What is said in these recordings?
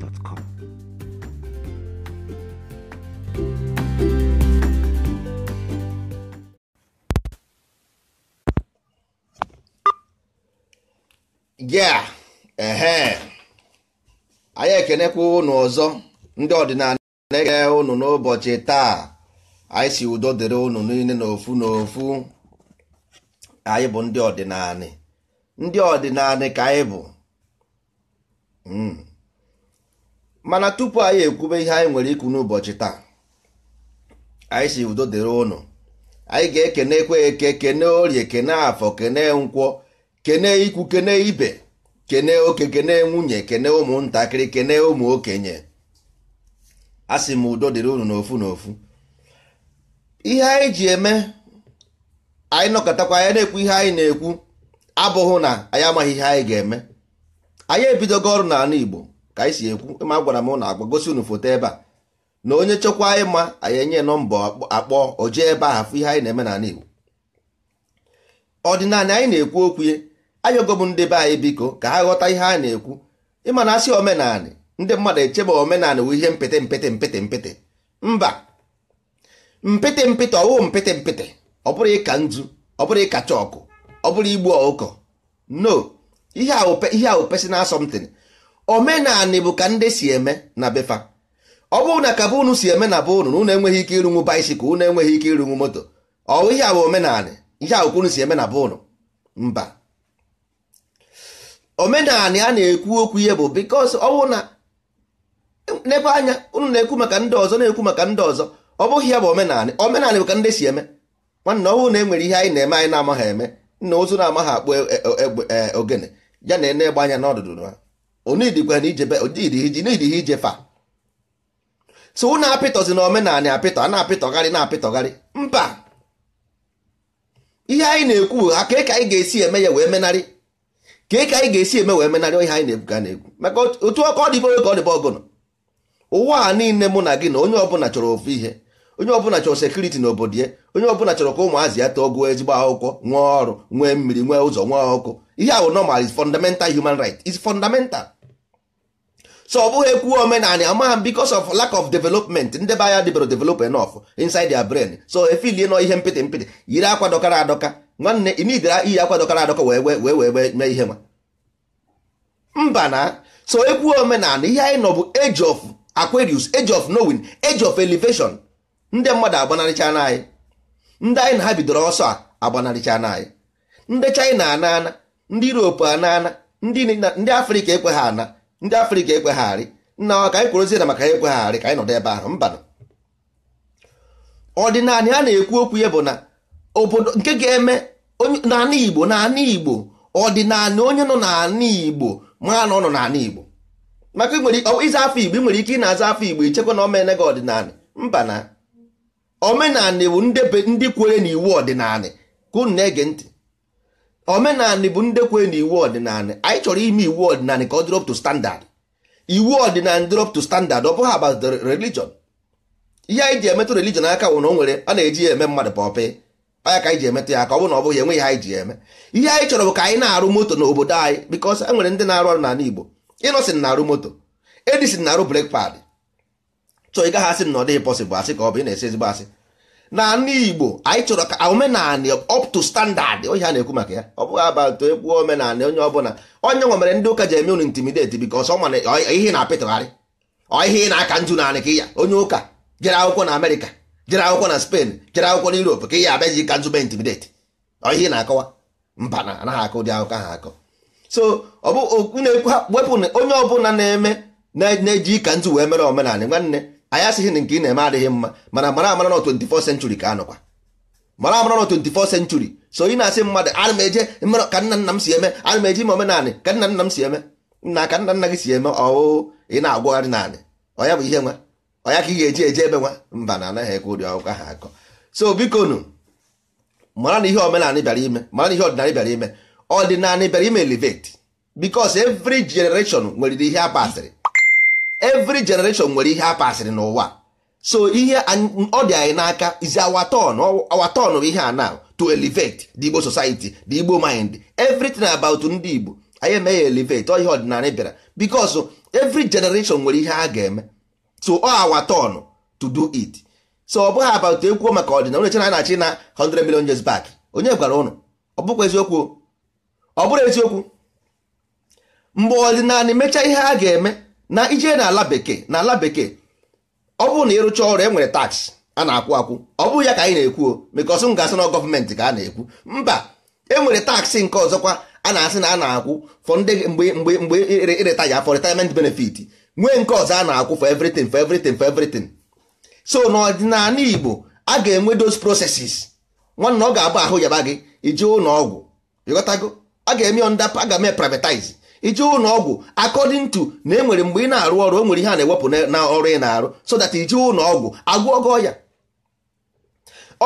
gmail.com. a anyị ekenekwa ụnụ ọzọ ndị ọdịnala na-ege ụnụ n'ụbọchị taa anyị si udo dịrị ụnụ niile n'ofu n'ofu anyị bụ ndị ọdịnala ndị ọdịnala ka anyị bụ hmm. mana tupu anyị ekwube ihe anyị nwere ikwu n'ụbọchị taa anyị si udo dịrị ụnụ anyị ga na-ekwe eke kene orie kene afọ kene nkwọ kene ikwu kene ibe kene oke kene nwunye kene ụmụntakịrị kene ụmụ okenye a sị m udo dịrị ụnụ n'ofu n'ofu ihe anyị ji eme anyị nọkọtakwa anyị na-ekwu ihe anyị na-ekwu abụghị na anyị amaghị ihe anyị ga-eme anyị ebidogo ọrụ n'ala Igbo ka anyị si ekwu ma gwara m na agwa gosi unu foto ebe a na onye chekwa ịma anyị enye nọmba akpọ oje ebe a afụ ihe anyị na-eme n'ala Igbo ọdịnala anyị na-ekwu okwu ye ayọgo m ndị be anyị biko ka ha ghọta ihe a na-ekwu ịma na asị omenanị ndị mmadụ echebe omenanị wụ ihe mpịtị mpịtị mpịtị mpịtị mba mpịtị mpịtị ọwụ mpịtị mpịtị ọ bụrụ ịka nzu ọ bụrụ ịka chọkụ ọ bụrụ igbu ọkụkọ no ihe ahụ personal something omenanị bụ ka ndị si eme na befa ọ bụrụ na ka be si eme na bụ unu na unu enweghị ike ịrụnwu baisikụl unu enweghị ike ịrụnwu moto ọ ihe a bụ omenanị ihe a bụkwa unu si eme na bụ unu mba omenanị a na-ekwu okwu ihe bụ bikos ọ bụrụ na n'ebe anya unu na-ekwu maka ndị ọzọ na-ekwu maka ndị ọzọ ọ bụghị ya bụ omenanị omenanị bụ ka ndị si eme nwanne ọ bụrụ na e nwere ihe anyị na-eme anyị na-amaghị eme nna ozu na-amaghị akpụ e, e, e, ogene ya na ene egbe anya n'ọdụdụ ha onidịghị so unu apịtọzi na omenala apịtọ a na-apịtọgharị na-apịtọgharị mba ihe anyị na-ekwu ha ka ka anyị ga-esi eme ya wee menarị ka ka anyị ga-esi eme wee menarị ihe anyị na ebuga na-ekwu maka otu ọkọ ọ dịbe ka ọ dịbe ọgụnụ ụwa a niile mụ na gị na onye ọbụla chọrọ ofu ihe onye ọbụla chọrọ sekuriti na obodo ya onye ọbụla chọrọ ka ụmụazị ya tọọ gụọ ezigbo akwụkwọ nwee ọrụ nwee mmiri nwee ụzọ nwee ọkụ ihe bụ normal is fundamental human right is fundamental so ọ bụghị ekwu omenanị amaghị m because of lack of development ndị be anya debere develop enough inside their brain so efilie nọ ihe mpịtị mpịtị yiri akwa dọkara adọka nwanne imidra iyi akwa dọkara adọka wee wee wee mee ihe nwa mba na so ekwu omenanị ihe anyị nọ bụ age of Aquarius age of knowing age of elevation ndị mmadụ agbanarịcha na anyị ndị anyị na ha bidoro ọsọ a agbanarịcha nanyị anyị ndị China anaana ndị Europe anaana ndị Afrịka ekwe ana ndị afrịka ekwegharị nna ọ ka anyị kwurozie na maka ya ekwegharị ka anyị nọdụ ebe ahụ mba ọdịnala a na-ekwu okwu ya bụ na obodo nke ga-eme n'ala igbo n'ala igbo ọdịnala onye nọ n'ala igbo mara na ọ nọ n'ala igbo maka ịza afọ igbo ị nwere ike ị na-aza afọ igbo ichekwa na omene gị ọdịnala mba na omenala bụ ndị kwere na iwu ọdịnala ka unu na-ege ntị omenanị bụ ndekwe na iwu ọdịnala anyị chọrọ ime iwu ọdịnala ka ọ drop to standard iwu ọdịnala drop to standard ọ bụghị about religion ihe anyị ji emetụ religion aka wụ na o nwere a na-eji ya eme mmadụ pọpị anya ka anyị ji emetụ ya ka ọ bụ na ọ bụghị enwe ihe anyị ji eme ihe anyị chọrọ bụ ka anyị na-arụ moto n'obodo anyị because e nwere ndị na-arụ ọrụ n'ala Igbo Innocent na-arụ moto Edison na-arụ brake pad chọọ ị gaghị asị na ọ dịghị possible asị ka ọ bụ ị na-esi ezigbo asị na ndị Igbo anyị chọrọ ka omenala up to standard onye a na-ekwu maka ya ọ bụghị abatụ ekwu omenala onye ọbụla onye nwe mere ndị ụka ji eme unu intimidate because ihe na-apịtụgharị ihe na-aka nju naanị ka ya onye ụka jere akwụkwọ na Amerịka jere akwụkwọ na Spain jere akwụkwọ na Europe ka ya abịaji ka nju mee intimidate ihe na-akọwa mba anaghị akụ ụdị akụkọ ahụ akọ so ọ bụ wepụ onye ọbụla na-eme na-eji ka njụ wee mere omenala nwanne anyị asịghị na nke ị na-eme adịghị mma mana mara amara na 24th century ka anọkwa mara amara na 24th century so ị na-asị mmadụ ana m eje ka nna nna m si eme ana m eje ime omenaanị ka nna nna m si eme nna ka nna nna gị si eme ọwụ ị na-agwagharị naanị ọya bụ ihe nwa ọya ka ị ga-eji eje ebe nwa mba na anaghị ekwe ụdị ọgụkọ ha akọ so biko nu mara na ihe omenanị bịara ime mara na ihe ọdịnanị bịara ime ọdịnanị bịara ime elevate because every generation nwere ihe a pasịrị evry generation nwere ihe a pasịrị n'ụwa so ihe ọ dị anyị n'aka is our bụ ihe a now to elevate the Igbo society the Igbo mind everything about ndị Igbo anyị eme ya elevate ọ ihe ọdịnala bịara because every generation nwere ihe a ga-eme so ọ our to do it so ọ bụghị about ekwu maka ọdịnala onye chena na-achị na 100 million years back onye gwara ụnụ ọ bụkwa eziokwu ọ bụrụ eziokwu mgbe ọdịnala mechaa ihe a ga-eme na ije na ala bekee na ala bekee ọ bụrụ na ịrụcha ọrụ e nwere tax a na-akwụ akwụ ọ bụghị ya ka anyị na-ekwu o because m ga-asị na gọọmenti ka a na-ekwu mba e nwere taksị nke ọzọkwa a na-asị na a na-akwụ fọ mgbe mgbe mgbe ireta ya for retirement benefit nwee nke ọzọ a na-akwụ for everything for everything for everything so n'ọdịnala Igbo a ga-enwe dos processes nwanne ọ ga-abụ ahụ yaba gị ije ụlọ ọgwụ ịghọtago a ga-eme onda a ga-eme privatize ije ụlọ ọgwụ according to na enwere mgbe ị na-arụ ọrụ o nwere ihe a na-ewepụ na ọrụ ị na-arụ so that ije ụlọ ọgwụ agwọgọ ya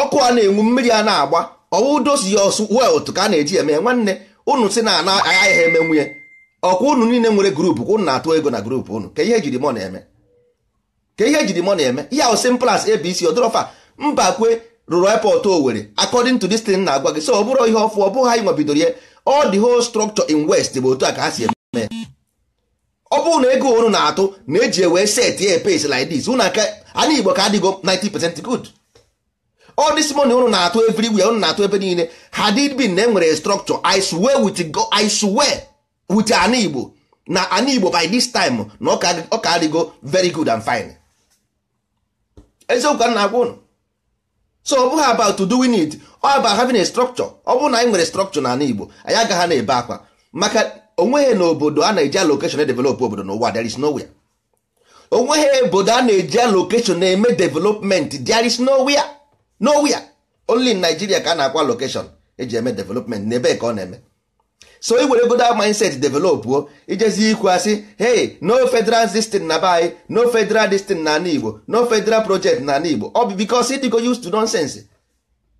ọkụ a na-enwu mmiri a na-agba ọwụdosi ya ọsụ otu ka a na-eji eme nwanne ụnụ si na ana agaghị eme nwunye ọkwa ụnụ niile nwere grupu ụnụ na-atụ ego na grupu ụnụ ka ihe ejiri mọ na-eme ka ihe jiri mọ na-eme ihe ahụ simple as abc odorofa mbakwe rụrụ airport owere according to this thing na-agwa gị so ọ bụrụ ihe ọfụ ọ bụghị anyị nwebidoro ya all the whole structure in west bụ otu a ka ha si eme ọ bụrụ na ego unu na-atụ na eji ewe set ya pace like dis unu aka anyị igbo ka adịgo 90% good all this money unu na-atụ wia unu na-atụ ebe niile had it been na enwere structure i swear with go i swear with ana igbo na ana igbo by this time na ọ ka adịgo very good and fine eziokwu ka na-agwa ụnụ. so ọ bụghị about to do we need ọ about having a structure ọ bụrụ na anyị nwere structure n'ala Igbo anyị agaghị na-ebe akwa maka onweghị na obodo a na-eji allocation edevelop obodo n'ụwa there is nowhere onweghị obodo a na-eji allocation na-eme development there is nowhere nowhere only in Nigeria ka a na-akwa location eji eme development n'ebe ka ọ na-eme so i e were goda mindset develop o ijezi e ikwu asị hey no federal system na be no federal system na ana igbo no federal project na ana igbo ọ bụ bikos ịdịgo to nonsense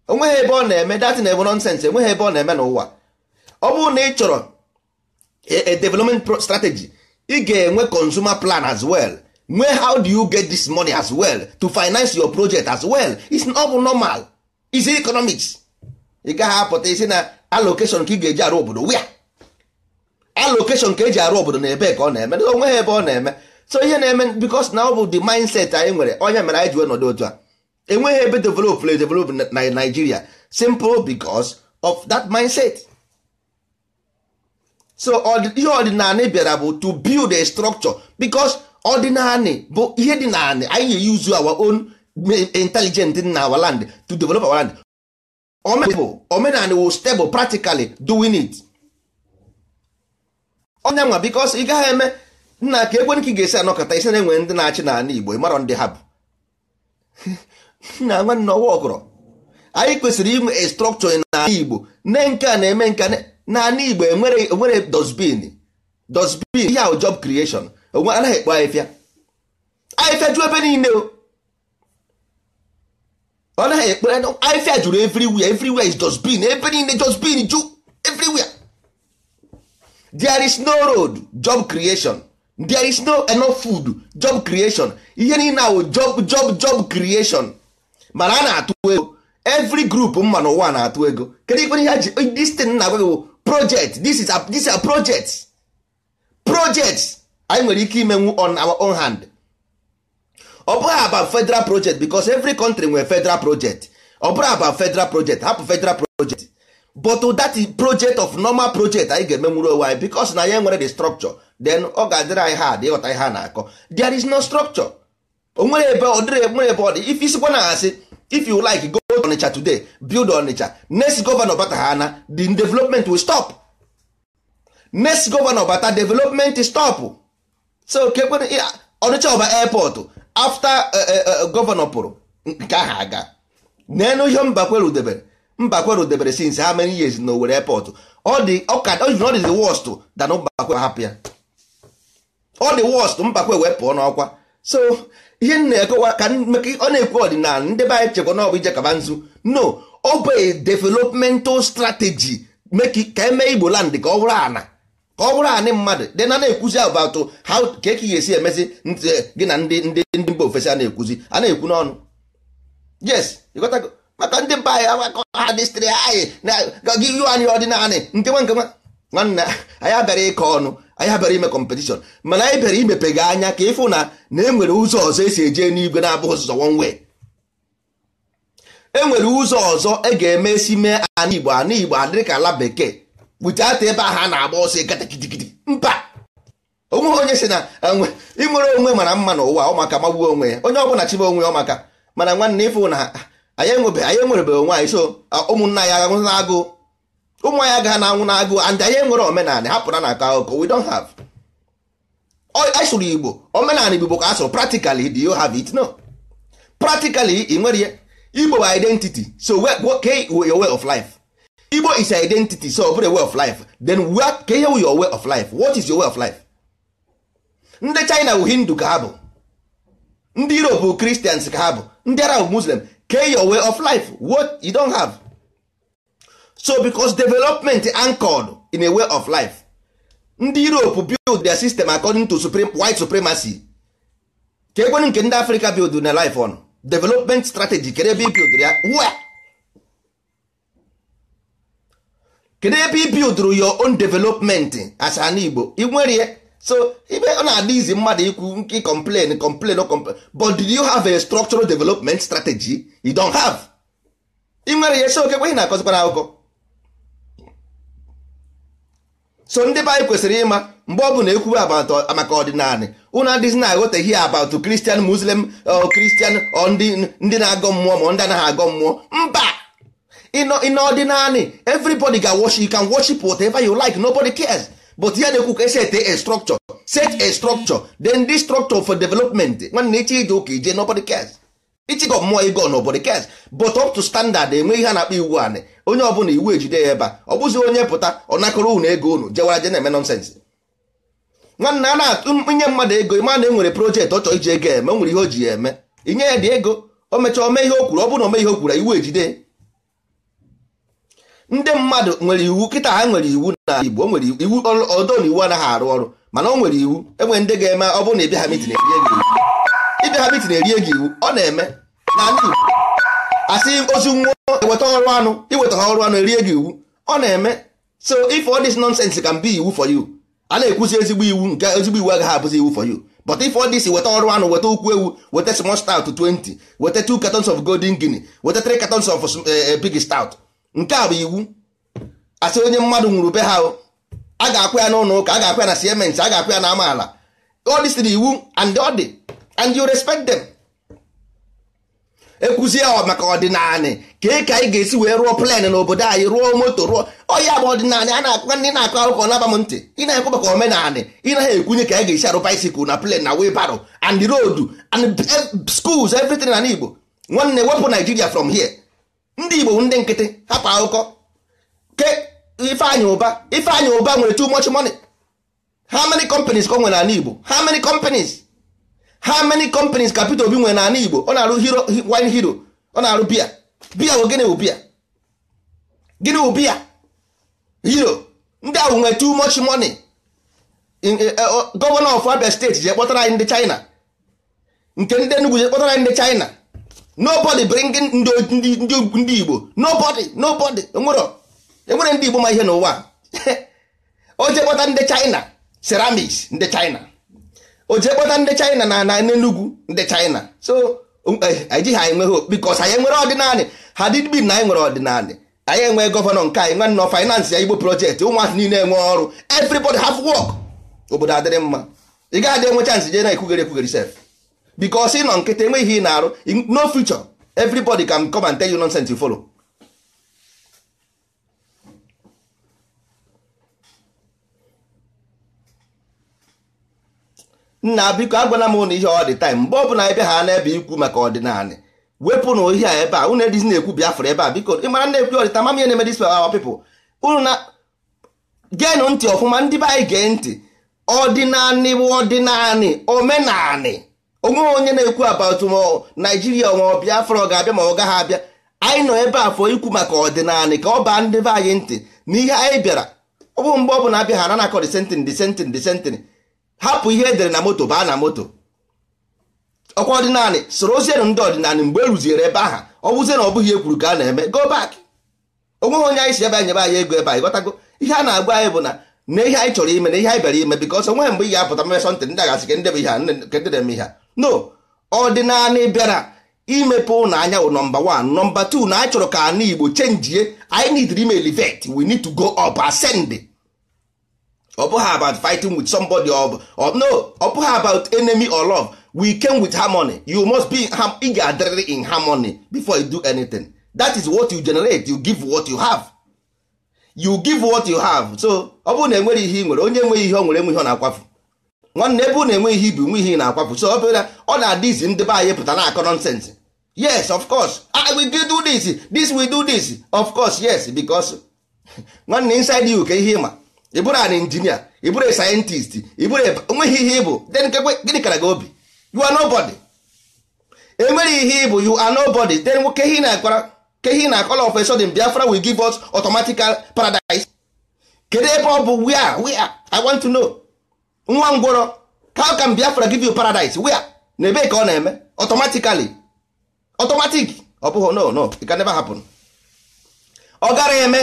onweghị ebe ọ na-eme na ebe nonsense enweghị ebe ọ na-eme n'ụwa ọ bụrụ na ị chọrọ e, development strategy ị ga-enwe consumer plan as well nwee how do you get this money as well to finance your project as well it's ọ bụ normal is economics ị gaghị apụta isi na allocation ka ị ga-eji arụ obodo wia allocation ka eji arụ obodo na ebe ka ọ na-eme na onwe ebe ọ na-eme so ihe na-eme because na ọ bụ the mindset anyị nwere onye mere anyị ji wee nọdụ otu a enweghị ebe develop na develop na Nigeria simple because of that mindset so ihe ọdịnala bịara bụ to build a structure because ọdịnala bụ ihe dị naanị anyị use our own intelligent na our land to develop our land omenala will stable practically doing it ọnya nwa bikos ị gaghị eme nna ka ekwe nke ga-esi anọkọta isi na-enwe ndị na-achị n'ala Igbo ịmarọ ndị ha bụ nna nwanne ọwa ọgọrọ anyị kwesịrị inwe estrọkchọ n'ala Igbo ne nke a na-eme nka n'ala Igbo enwere dosbin dosbin ihe ahụ job creation onwe anaghị ekpo ahịfịa ahịfịa ju ebe niile o ọ naghị ekpere ahịfịa juru everywhere everywhere is dosbin ebe niile dosbin ju everywhere there is no road job creation there is no enough food job creation ihe niile ahụ job job job creation mana a na-atụ ego every group mma ụwa na-atụ ego kedu ikpere ihe ji this thing na agwa project this is a, project project anyị nwere ike imenwu on our own hand ọ bụghị about federal project because every country nwere federal project ọ bụghị about federal project hapụ federal project but that project of normal project anyị ga-emenwuru onwe anyị because na ya nwere the structure then ọ ga-adịrị anyị hard ịghọta ihe a na-akọ there is no structure onwere ebe ọ dịrị nwere ebe ọ dị if isikwa na asị if you like go to Onitsha today build Onitsha next governor bata ha na the development will stop next governor bata development stop so kekwe Onitsha ọba airport after eh, eh, eh, governor pụrụ nke ha aga na ihe mba kwere mbakweru debere since ha many years na Owerri airport ọ dị the worst mbakwe hapụ ya ọ dị worst mbakwe wee pụọ n'ọkwa so ihe na-ekowa ka ọ na-ekwu ọdịnala ndị be anyị chekwa na ọbụ ije kaba nzu no ọ bụ developmental strategy ka eme Igbo land ka ọ bụrụ ana ka ọ bụrụ anị mmadụ dị na na-ekwuzi about how ka eke ga-esi emezi gị na ndị ndị ndị mba ofesi a na-ekwuzi a na-ekwu n'ọnụ yes maka ndị mba anyị agbakọ ha dịstịrị anyị gị yu anyị ọdịnala nke nwa nke nwa nwanne anyị abịara ịkọ ọnụ anyị abịara ime kọmpetishọn mana anyị bịara imepe gị anya ka ịfụ na na enwere ụzọ ọzọ esi eje n'igwe na-abụghị ụzọ wonwe enwere ụzọ ọzọ e ga-eme esi mee ana igbo ana igbo adịrị ka ala bekee buteata ebe ahụ a na-agba ọsọ ịgata kidigidi. mba onweghị onye si na ịmụrụ onwe mara mma n'ụwa ụmaka magbuo onwe ya onye ọbụla chibe onwe ya ọmaka mana nwanne ịfụ na anyị enwerebeghị onwe anyị so ụmụnna agha na agụụ ụmụ anyị agaghị na anwụ and anyị enwere omenala hapụra na aka akụkọ we don't have asụrụ e igbo omenala igbo ka asụrụ practically do you have it no practically ị nwere ya igbo bụ identity so ke e, your way of life igbo is identity so ọ way of life then ke ihe your way of life what is your way of life ndị china bụ hindu ka ha bụ ndị europe bụ christians ka ha bụ ndị arab muslim get your way of life what you don have so because development anchored in a way of life ndị europe build their system according to supreme, white supremacy ka ekwenu nke ndị africa build na life on development strategy kedu ebe build ya where kedu ebe ibuild your own development as an igbo inwere so ibe ọ na-adị izi mmadụ ikwu nke complain complain o complain but did you have a structural development strategy you don't have ị nwere ya so okekwe ị na-akọzikwana akụkọ so ndị be anyị kwesịrị ịma mgbe ọ bụla ekwuwe maka ọdịnala unu adịzi na hi about Christian Muslim uh, Christian ndị na-agọ mmụọ ma ndị anaghị agọ mmụọ mba in ọdịnala everybody ga worship you can worship whatever you like nobody cares. but ya na-ekwu ka esi ete a structure set a structure then this structure for development nwanne iche ije ụka ije nobody cares ichigo mmụọ ego nobody cares but up to standard enwe ihe a na-akpọ iwu anị onye ọbụla iwu ejide ya ebe ọ bụzi onye pụta ọ nakọrọ unu ego unu jewara je na-eme nonsens nwanne a na-nye mmadụ ego ịma na enwere projektị ọ chọọ iji ego eme o nwere ihe o ji ya eme inye ya dị ego o mechaa ome ihe o kwuru ọ bụrụ na ome ihe o kwuru iwu ejide ndị mmadụ nwere iwu kịta ha nwere iwu na igbo o nwere iwu ọdọ na iwu anaghị arụ ọrụ mana o nwere iwu enwere ndị ga-eme ọ bụrụ na ịbịa ha mitin erie gị iwu ịbịa ha mitin erie gị iwu ọ na-eme na igbo asị ozu nwụọ eweta ọrụ anụ iweta ha ọrụ anụ erie gị iwu ọ na-eme so if all this nonsense can be iwu for you a na-ekwuzi ezigbo iwu nke ezigbo iwu agaghị abụzi iwu for you but if all this weta ọrụ anụ weta ukwu ewu weta small stout 20 weta 2 cartons of golden guinea weta 3 catons of eh, eh, pig stout nke a bụ iwu asị onye mmadụ nwụrụ be ha a ga-akwụ ya n'ụlọ ụka a ga-akwụ ya na siemens a ga-akwụ ya na amaala odisiri iwu and ọ dị and you respect them ekwuzie maka ọdịnala ka ka anyị ga-esi wee rụọ plen obodo anyị rụọ moto rụọ ọya bụ ọdịnala a na-akụkọ ndị na-akụ akụkọ naba m ntị ị na-ekwu maka omenala ị naghị ekwunye ka anyị ga-esi arụ baisikụl na plen na webaro and road and eh, schools everything na igbo nwanne wepụ Nigeria from here ndị igbo ndị nkịtị hapụ akụkọ ke ifeanyị ụba ifeanyị ụba nwere too much money how many companies ka o nwere n'ala igbo how many companies how many companies ka Peter Obi nwere n'ala igbo ọ na-arụ hero wine hero ọ na-arụ bia bia bụ gịnị bụ gịnị bụ bia hero ndị ahụ nwere too much money eh, eh, gọvanọ of Abia steeti je kpọtara anyị ndị China nke ndị Enugu je kpọtara anyị ndị China nobody bringing ndị igbo nobody nobody enwere ndị igbo ma ihe n'ụwa o kpọta ndị china ceramics ndị china o kpọta ndị china na na n'enugwu ndị china so um, ejighị anyị nwere because anyị nwere ọdịnanị ha dịdbin na anyị nwere ọdịnanị anyị enwe gọvanọ nke anyị nwanne finance ya igbo projekti ụmụazị niile enwe ọrụ everybody have work obodo adịrị mma ị gaghị adị enwe chance jee na ekwugere ekwugere sef because ị nọ nkịta enweghị ihe ị na-arụ no future everybody can come and tell you nonsense you follow nna biko agwana m ụnụ ihe ọ dị time mgbe ọbụla ebe ha na-ebe ikwu maka ọdịnala wepụ na a ebe a unu edizi na-ekwu Biafra ebe a biko ị mara na-ekwu ọdịta mama na-eme dis our people unu na geenụ ntị ọfụma ndị be anyị gee ntị ọdịnanị bụ ọdịnanị omenanị onwe onye na-ekwu about naijiria ma bịa ọ ga-abịa ma ọ gaghị abịa anyị nọ ebe a fọ ikwu maka ọdịnala ka ọ baa ndị be anyị ntị na ihe anyị bịara ọ bụ mgbe ọ bụla abịa ha na-akọ disentin disentin disentin hapụ ihe edere na moto baa na moto ọkwa ọdịnala soro ozienụ ndị ọdịnala mgbe e ebe aha ọ bụzie na ọ bụghị ekwuru ka a na-eme go back onweghị onye anyị si ebe anyị nyebe anyị ego ebe anyị ghọtago ihe a na-agwa anyị bụ na na ihe anyị chọrọ ime na ihe anyị bịara ime bikọs onweghị mgbe ị apụta mmesọ ntị ndị agasị ka ndị bụ ihe a ndị eme ihe a no ọdịnala bịara imepe na anya wụ nọmba 1 nọmba 2 na achọrọ ka ana igbo chenjie anyị need email vet we need to go up ascend ọ bụghị about fighting with somebody or, or no ọ bụghị about enemy or love we came with harmony you must be ị ga-adịrịrị in harmony before you do anything that is what you generate you give what you have you give what you have so ọ bụrụ na enweghị ihe ị nwere onye enweghị ihe ọ nwere ihe ọ na-akwafu nwanne ebe unu enwe ihe ibi nwe ihe na-akwapụ so obere ọ na-adị izi ndị be anyị pụta na-akọ nọnsensị yes of course I ah, will do this this will do this of course yes because nwanne inside you ka ihe ịma ị bụrụ an injinia ị bụrụ sayentist ị bụrụ onweghị ihe ịbụ then gịnị kara gị obi you are nobody enwere ihe ịbụ you are nobody then ke ihe na-akwara ke ihe na-akọla of a sudden Biafra will give us automatical paradise kedu ebe ọ bụ we are I want to know nwa ngwọrọ how can Biafra give you paradise where na ebee ka ọ na-eme automatically automatic ọ no no it can never happen ọ gara eme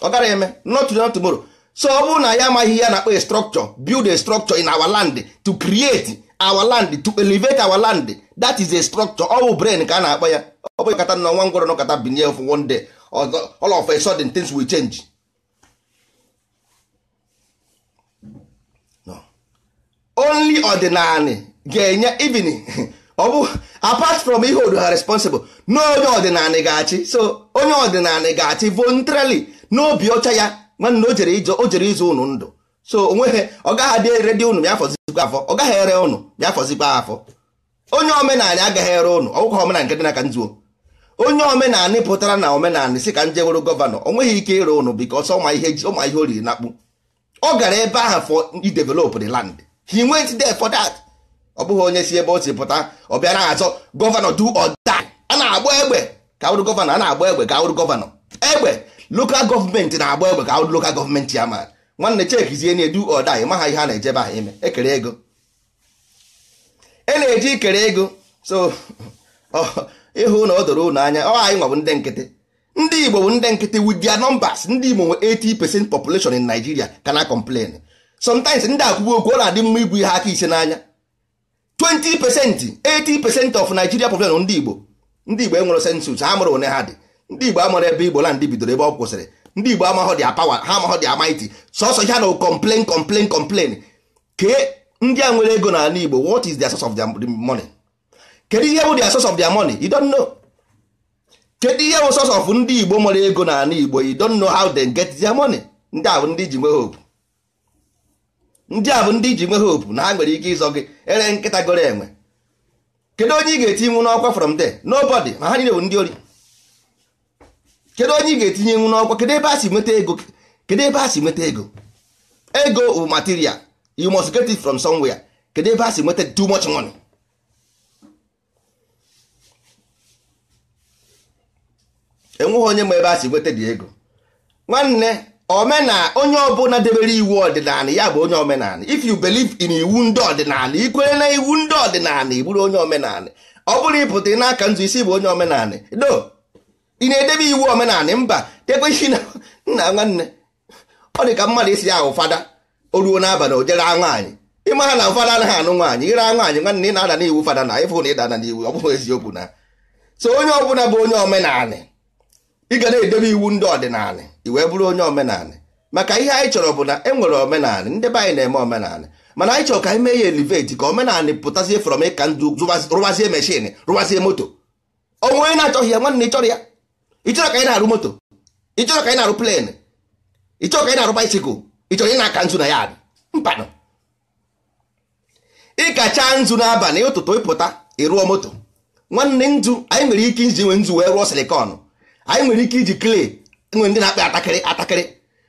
ọ gara eme not today not tomorrow so ọ bụrụ na ya amaghị ya na-akpọ a structure build a structure in our land to create our land to elevate our land that is a structure ọ bụ brain ka a na-akpọ ya ọ bụghị kata na nwa ngwọrọ nọkọta binye of one day all of a sudden things will change only ọdịnala ga-enye even ọ bụ apart from ihe odu ha responsible na onye ga-achị so onye ọdịnala ga-achị voluntarily n'obi ọcha ya nwanne o jere ịzụ ụnụ ndụ so onweghị ọ gaghị adị ere dị unu ya fọzikwa afọ ọ gaghị ere unu ya fọzikwa afọ onye omenala agaghị ere ụnụ ọgwụkwa omenala nke dị n'aka nzuo onye omenala pụtara na omenala si ka njeworo gọvanọ o nweghị ike ịre ụnụ bikos ọma ihe o na akpụ ọ gara ebe ahụ fọ idevelop de land he went there for that ọ bụghị onye si ebe o si pụta ọ bịara azọ gọvanọ du or a na-agba egbe ka awụrụ gọvanọ a na-agba egbe ka awụrụ gọvanọ egbe lokal gọọmenti na-agba egbe ka awụrụ lokal gọọmenti ya ma nwanne chekizie na edu or die maha ihe a na-ejebe ha ime ekere ego e na-eji ikere ego so ịhụ na ọ doro unu anya ọ anyị nwa bụ ndị nkịtị ndị Igbo bụ ndị nkịtị with their numbers ndị Igbo nwe 80 percent population in Nigeria kana complain sometimes ndị akwụgwọ okwu ọ na-adị mma igwu ihe aka ise n'anya 20 pesenti 80 pesenti of Nigeria population ndị Igbo ndị Igbo enwere sensus ha mụrụ one ha dị ndị Igbo amụrụ ebe Igbo land bidoro ebe ọ kwụsịrị ndị Igbo amaghọ dị apawa ha amaghọ dị amaiti sọsọ ha na complain complain complain ke ndị a nwere ego n'ala Igbo what is their source of their money kedu ihe bụ the source of their money you don't know kedu ihe bụ source of ndị Igbo nwere ego n'ala Igbo you don't know how they get their money ndị a ndị ji nwee hope ndị a bụ ndị iji nwe hope na ha nwere ike ịzọ gị ere nkịta goro enwe kedu onye ị ga-etinyenwu n'ọkwa from there nobody ma ha niile bụ ndị ori kedu onye ị ga-etinyenwu n'ọkwa kedu ebe a si nweta ego kedu ebe a si nweta ego ego bụ material you must get it from somewhere kedu ebe a si nweta too much money enweghị onye ma ebe a si nweta dị ego nwanne omena onye ọbụla debere iwu ọdịnala ya bụ onye omenala if you believe in iwu ndị ọdịnala ikwere na iwu ndị ọdịnala igburu bụrụ onye omenala ọ bụrụ ịpụta n'aka nzu isi bụ onye omenala do ị na-edebe iwu omenala mba tekweisi na nna nwanne ọ dị ka mmadụ isi ya ahụ fada o ruo n'abalị o jere nwaanyị ịma ha na ụfada anaghị anụ nwaanyị ire nwaanyị nwanne ị na-ada n'iwu fada na ịfụ na na n'iwu ọ bụghị eziokwu na so onye ọbụla bụ onye omenala ị ga na-edebe iwu ndị ọdịnala i wee bụrụ onye omenala maka ihe anyị chọrọ bụ na e nwere omenala ndị be anyị na-eme omenala mana anyị chọrọ ka anyị mee ya eliveti ka omenala pụtazie frọm ịka ndụ rụbazie meshin rụbazie moto onwe onye na-achọghị ya nwanne ịchọrọ ya ịchọrọ ka anyị na-arụ moto ịchọrọ ka anyị na-arụ plen ịchọrọ ka anyị na-arụ baisikụl ịchọrọ ị na-aka nzu na ya mpanụ ịkacha nzu n'abalị ụtụtụ ịpụta ịrụọ moto nwanne nzu anyị nwere ike iji nwe nzu wee rụọ silikọn anyị nwere ike iji clay nwere ndị na-akpa atakịrị atakịrị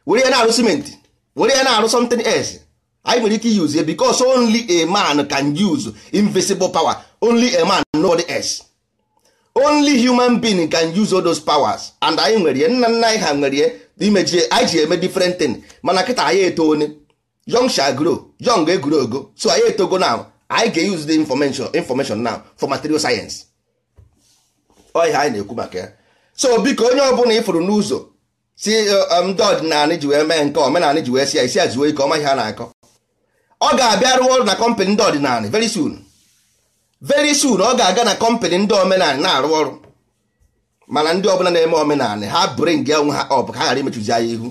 were ya na-arụ simenti were ya na-arụ something else anyị nwere ike use ya because only a man can use invisible power only a man nobody else only human being can use all those powers and anyị nwere ya nna nna anyị ha nwere ya imejie anyị ji eme different thing mana kịta anyị eto one young shall grow young egoro ogo so anyị etogo now anyị ga-use the information information now for material science ọ ihe anyị na-ekwu maka ya so biko onye ọbụla ifuru n'ụzọ si uh, um, ndị ji wee mee nke omenala ji wee si ya isi ya zuo ike ọma ihe a na-akọ ọ ga-abịa rụọ na kọmpanị ndị ọdịnala very soon very soon ọ ga-aga na kọmpanị ndị omenalị na-arụ ọrụ mana ndị ọbụla na-eme omenalị ha bụrụ ya onwe ha ọ bụ ka ha ghara imechuzi ya ihu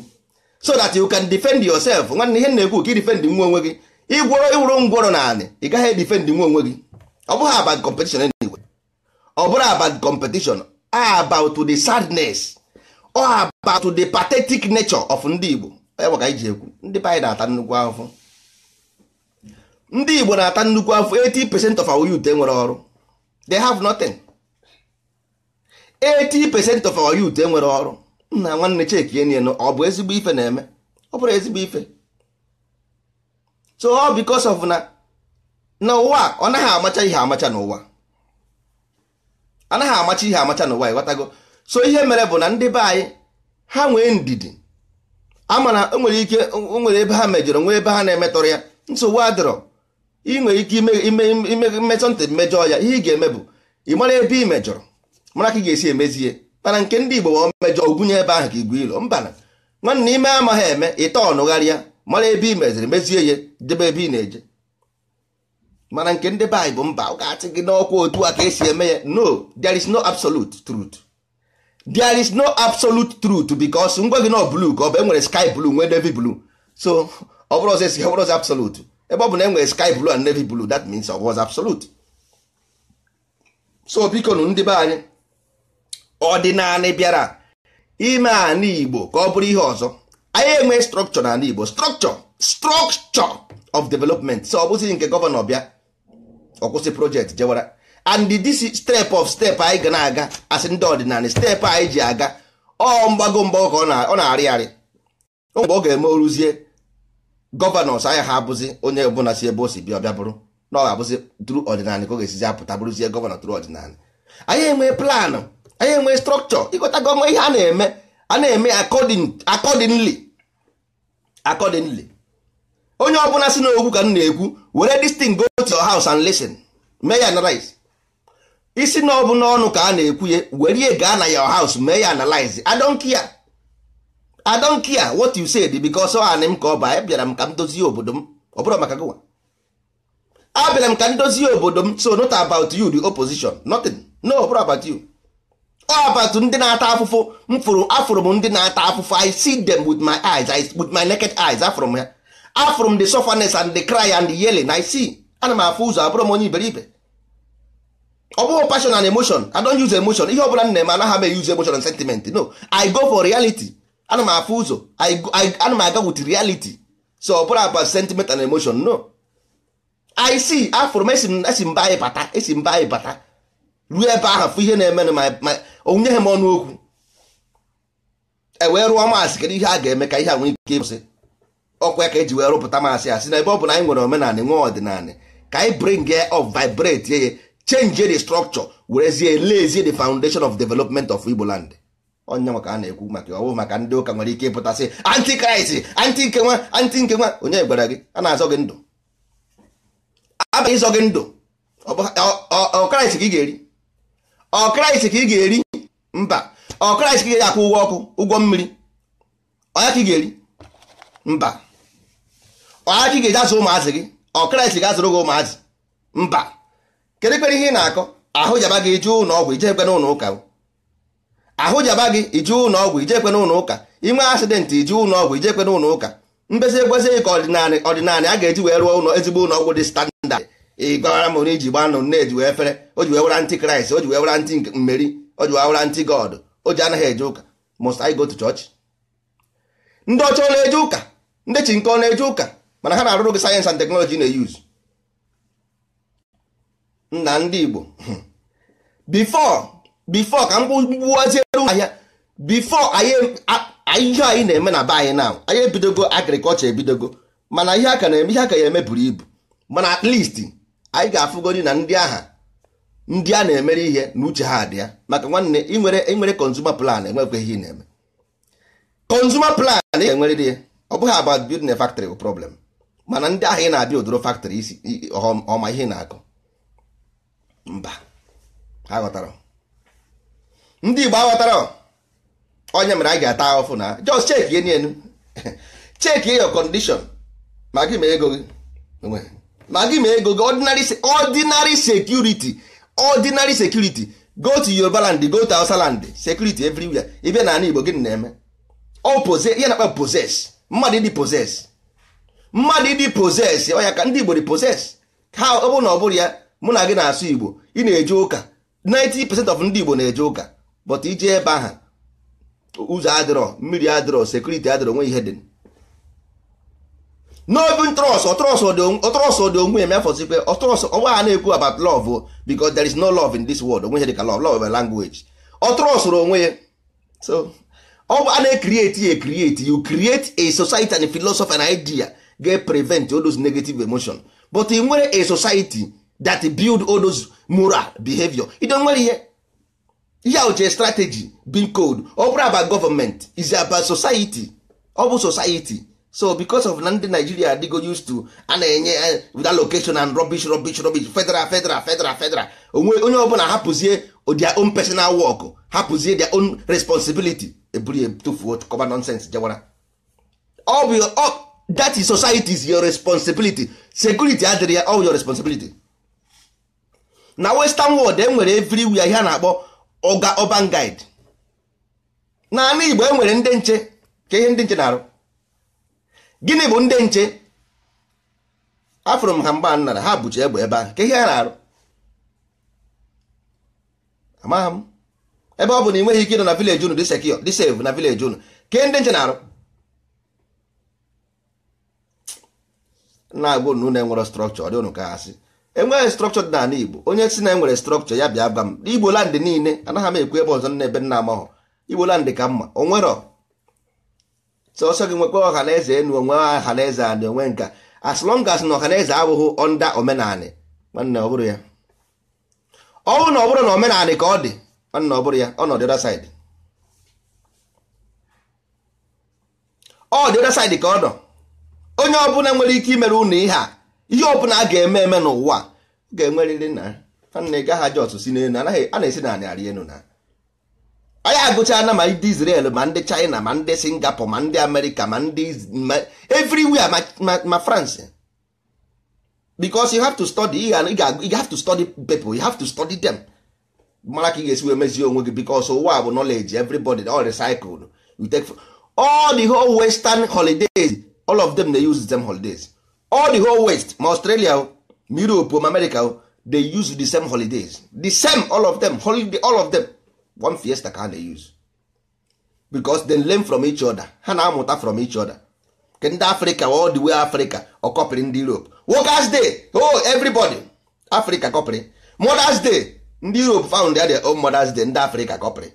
so that you can defend yourself nwanne ihe na-ekwu ka ị defend nwa onwe gị ịgwọrọ ịwụrụ ngwọrọ naanị ị gaghị edefend nwa onwe gị ọ bụghị ọ bụrụ about competition about the sadness or about the pathetic nature of ndị Igbo ka ji ekwu ndị be anyị na-ata nnukwu afọ ndị Igbo na-ata nnukwu afọ 80% of our youth enwere ọrụ they have nothing 80% of our youth enwere ọrụ nna nwanne chekienie ọ bụ ezigbo ife na-eme ọ bụrụ ezigbo ife so all because of na n'ụwa ọ naghị amacha ihe amacha n'ụwa anaghị amacha ihe amacha n'ụwa ịghọtago so ihe mere bụ na ndị be anyị ha nwee ndidi ama na nwere ike nwere ebe ha mejọrọ nwee ebe ha na-emetọrọ ya nsogbu adịrọ ị nwere ike mmetọ ntị mmejọ ya ihe ị ga-eme bụ ị mara ebe ị mejọrọ mara ka ị ga-esi emezie mana nke ndị Igbo ma mmejọ ogwunye ebe ahụ ka igwe ilo mbana nwanne ime amaghị eme ịta ọnụgharịa mara ebe ị meziri mezie ya debe ebe ị na-eje mana nke ndị be anyị bụ mba ọ ga-achị gị n'ọkwa otu a ka esi eme ya no there is no absolute truth there is no absolute truth because ngwa gị nọ blue ka ọ bụ enwere sky blue nwee navy blue so ọ bụrụ ọzọ esi ọ bụrụ ọzọ absolute ebe ọ bụ na enwere sky blue and navy blue that means ọ was absolute so biko nụ ndị be anyị ọdịnala bịara ime ala igbo ka ọ bụrụ ihe ọzọ anyị enwe na n'ala igbo structure structure of development so ọ bụzi nke gọvanọ bịa ọkwụsị project jewara and DC step of step anyị ga na-aga asị ndị ọdịnala step anyị ji aga ọ mgbago mgbago ka ọ na-arị arị mgbe ọ ga-eme oruzie gọvanọs anya ha abụzi onye ọbụla si ebe o si bịa ọbịa bụrụ na ọ ga-abụzi tru ọdịnala ka ọ ga-esizi apụta bụrụzie gọvanọ tru ọdịnala anyị enwe plan anyị enwe strọkchọ ịgọta gọọmenti ihe a na-eme a na-eme akọdịnli akọdịnli. onye ọbụla si n'okwu ka m na-ekwu were this thing go to your house and listen mee ya analyze isi na ọ bụ n'ọnụ ka a na-ekwu ya were ya gaa na your house mee ya analyze I don't care I don't care what you said because ọ anị m ka ọ baa bịara m ka m dozie obodo m ọ bụrụ maka gụwa abịara m ka m dozie obodo m so not about you the opposition nothing no ọ bụrụ about you abatụ ndị na-ata afụfụ m fụrụ afụrụ m ndị na-ata afụfụ I see them with my eyes with my naked eyes afụrụ m ya. afụrụ m the sufferness and the cry and the yelling I see ana m afụ ụzọ abụrụ m onye iberibe ọ bụghị passion and emotion I don't use emotion ihe ọbụla m na-eme anaghị m use emotion and sentiment no I go for reality ana m afụ ụzọ ana m aga with reality so ọ bụrụ about sentiment and emotion no I see afụrụ m esi mba anyị bata esi mba anyị bata ruo ebe ahụ fụ ihe na-emenụ ma onyeghị m ọnụ okwu e wee rụọ maasị kedu ihe a ga-eme ka ihe a nwee ike ịkwụsị ọkwa ka eji wee rụpụta masị asị na ebe ọ bụ na anyị nwere omenala nwe ọdịnala ka anyị bring of vibrate ye change the structure werezie lezie the foundation of development of Igbo land onye ka a na-ekwu maka ọwụ maka ndị ụka nwere ike ịpụta sị, anti nke nwa anti nke onye gwara gị a na-azọ gị ndụ abaghị ịzọ gị ndụ ọkraịst ka ị ga-eri ọkraịst ka ị ga-eri mba ọkraịst ka ị ga-akwụ ụgwọ ọkụ ụgwọ mmiri onye ka ị ga-eri mba ọhachi ga-eji azụ ụmụazị gị ọ kraịst ga-azụrụ gị ụmụazị mba kedu kpere ihe ị na-akọ ahụ jaba gị ije ụlọ ọgwụ ije ekwe n'ụlọ ụka ahụ jaba gị ije ụlọ ọgwụ ije ekwe n'ụlọ ụka inwe asidentị ije ụlọ ọgwụ ije ekwe n'ụlọ ụka mbezi ekwesịghị ka ọdịnala ọdịnala a ga-eji wee rụọ ụlọ ezigbo ụlọ ọgwụ dị standard ị gwara m na iji gba nụ na-eji wee efere o ji wee wera ntị kraịst o ji wee wera ntị mmeri o ji wee ntị god o ji anaghị eje ụka must I go to ndị ọcha ọ na-eje ụka ndị chi nke ọ na-eje ụka mana ha na-arụrụ gị sayensị and teknọlọji na-eyuz na ndị Igbo bifo ka m gbuwaziere ahịa bifọ ihe anyị na-eme na be anyị na anyị ebidogo agrikọlchọ ebidogo mana ihe aka na-eme ihe aka ya eme buru ibu mana at least anyị ga-afụgodi na ndị agha ndị a na-emere ihe na uche ha dị ya maka nwanne ịnwere ịnwere consumer plan enwekwa ihe ị na-eme konzuma plan ị ga dị ya ọ bụghị about building a factory bụ problem mana ndị ahụ ị na-abịa odoro factory isi ọma ihe na akụ mba aghọtara ndị Igbo aghọtara onye mere a ga-ata ahụfụ na just check ihe n'elu check your condition ma gị ma ego gị ma gị ma ego gị ordinary ordinary security ordinary security go to Yoruba land go to Hausa land security everywhere ibe na ala Igbo gị na-eme ọ pose ihe na-akpa poses mmadụ ndị poses mmadụ ịdị poses ọnya ka ndị igbo dị poses ha ọ bụrụ na ọ bụrụ ya mụ na gị na-asụ igbo ị na-eje ụka 90% of ndị igbo na-eje ụka but ije ebe aha ụzọ adịrọ mmiri adịrọ sekuriti adịrọ nwe ihe dị n'obi trọs ọtrọs dị onwe ya mefọzikwe ọtrọs ọgba ha na-ekwu about love because there is no love in this world onwe ihe dị ka love love language ọtrọsụrụ onwe ya so ọ bụ a na-ekrieti ya ekrieti you create a society and a philosophy and idea get prevent all those negative emotion but i nwere a society that build all those moral behavior don nwere ihe ihe uche strategy bin code ọ bụrụ about government is about society ọ bụ society so because of na ndị Nigeria adịgo used to a na-enye eh, eh, eh, with allocation and rubbish rubbish rubbish federal federal federal federal onwe onye ọbụla hapụzie their own personal work hapụzie their own responsibility eburu ya tufuo kọba nonsense jewara ọ bụ that is society is your responsibility security adịrị ya all your responsibility na western world e nwere everywhere ihe a na-akpọ oga urban guide naanị igbo e nwere ndị nche ka ihe ndị nche na-arụ gịnị bụ ndị nche afụrụ m ha mgba nnara ha bụchi egbe ebe ahụ ka ihe a na-arụ amaghị m ebe ọ bụ na ị nweghị ike ịnọ na vileji unu dị sekio na vileji unu ka ihe ndị nche na-arụ na-agụ na unu enwere strọkchọ dị unu ka ha sị enweghị strọkchọ dị n'ala Igbo onye si na enwere strọkchọ ya bịa gwa m Igbo land niile anaghị m ekwu ebe ọzọ na ebe nna amahụ Igbo land ka mma onwero sọsọ gị nwekwa ọha na eze enu onwe ọha na onwe nka as long as na ọha na eze abụghị ọnda omenanị nwanne ọ bụrụ ya ọ bụrụ na ọ bụrụ na omenanị ka ọ dị nwanne ọ bụrụ ya ọ nọ dị other ọ dị other side ka ọ nọ onye ọbụla nwere ike imere unu ihe a ihe ọbụla a ga-eme eme n'ụwa ga-enwerịrị na. nna ị gaghị ajọ si n'elu anaghị a na-esi na narị elu na anyị agụchala ma ndị Israel ma ndị China ma ndị Singapore ma ndị Amerịka ma ndị everywhere ma France because you have to study you have to study people you have to study them mara ka ị ga-esi wee mezie onwe gị because ụwa bụ nọleji everybody all recycled you take all the whole western holidays all of them dey use the same holidays all the whole west ma australia ma europe ma america dey use the same holidays the same all of them holiday all of them one fiesta ka they use because they learn from each other ha na-amụta from each other ke Africa all the way Africa ọkọpịrị ndị europe workers day oh everybody Africa kọpịrị mothers day ndị europe found their own mothers day ndị Africa kọpịrị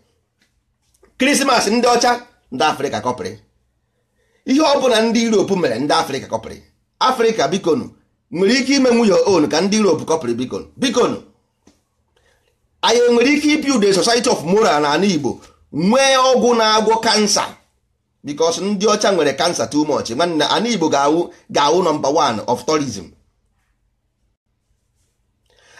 Christmas ndị ọcha ndị Africa kọpịrị ihe ọ bụla ndị Europe mere ndị Afrịka kọpịrị Afrịka bikonu nwere ike ime nwunye on ka ndị Europe kọpịrị bikonu bikonu anyị nwere ike ibuild the society of moral na ala Igbo nwee ọgwụ na-agwọ kansa bikos ndị ọcha nwere kansa too much nwanne ala Igbo ga-awụ ga-awụ nọmba 1 of tourism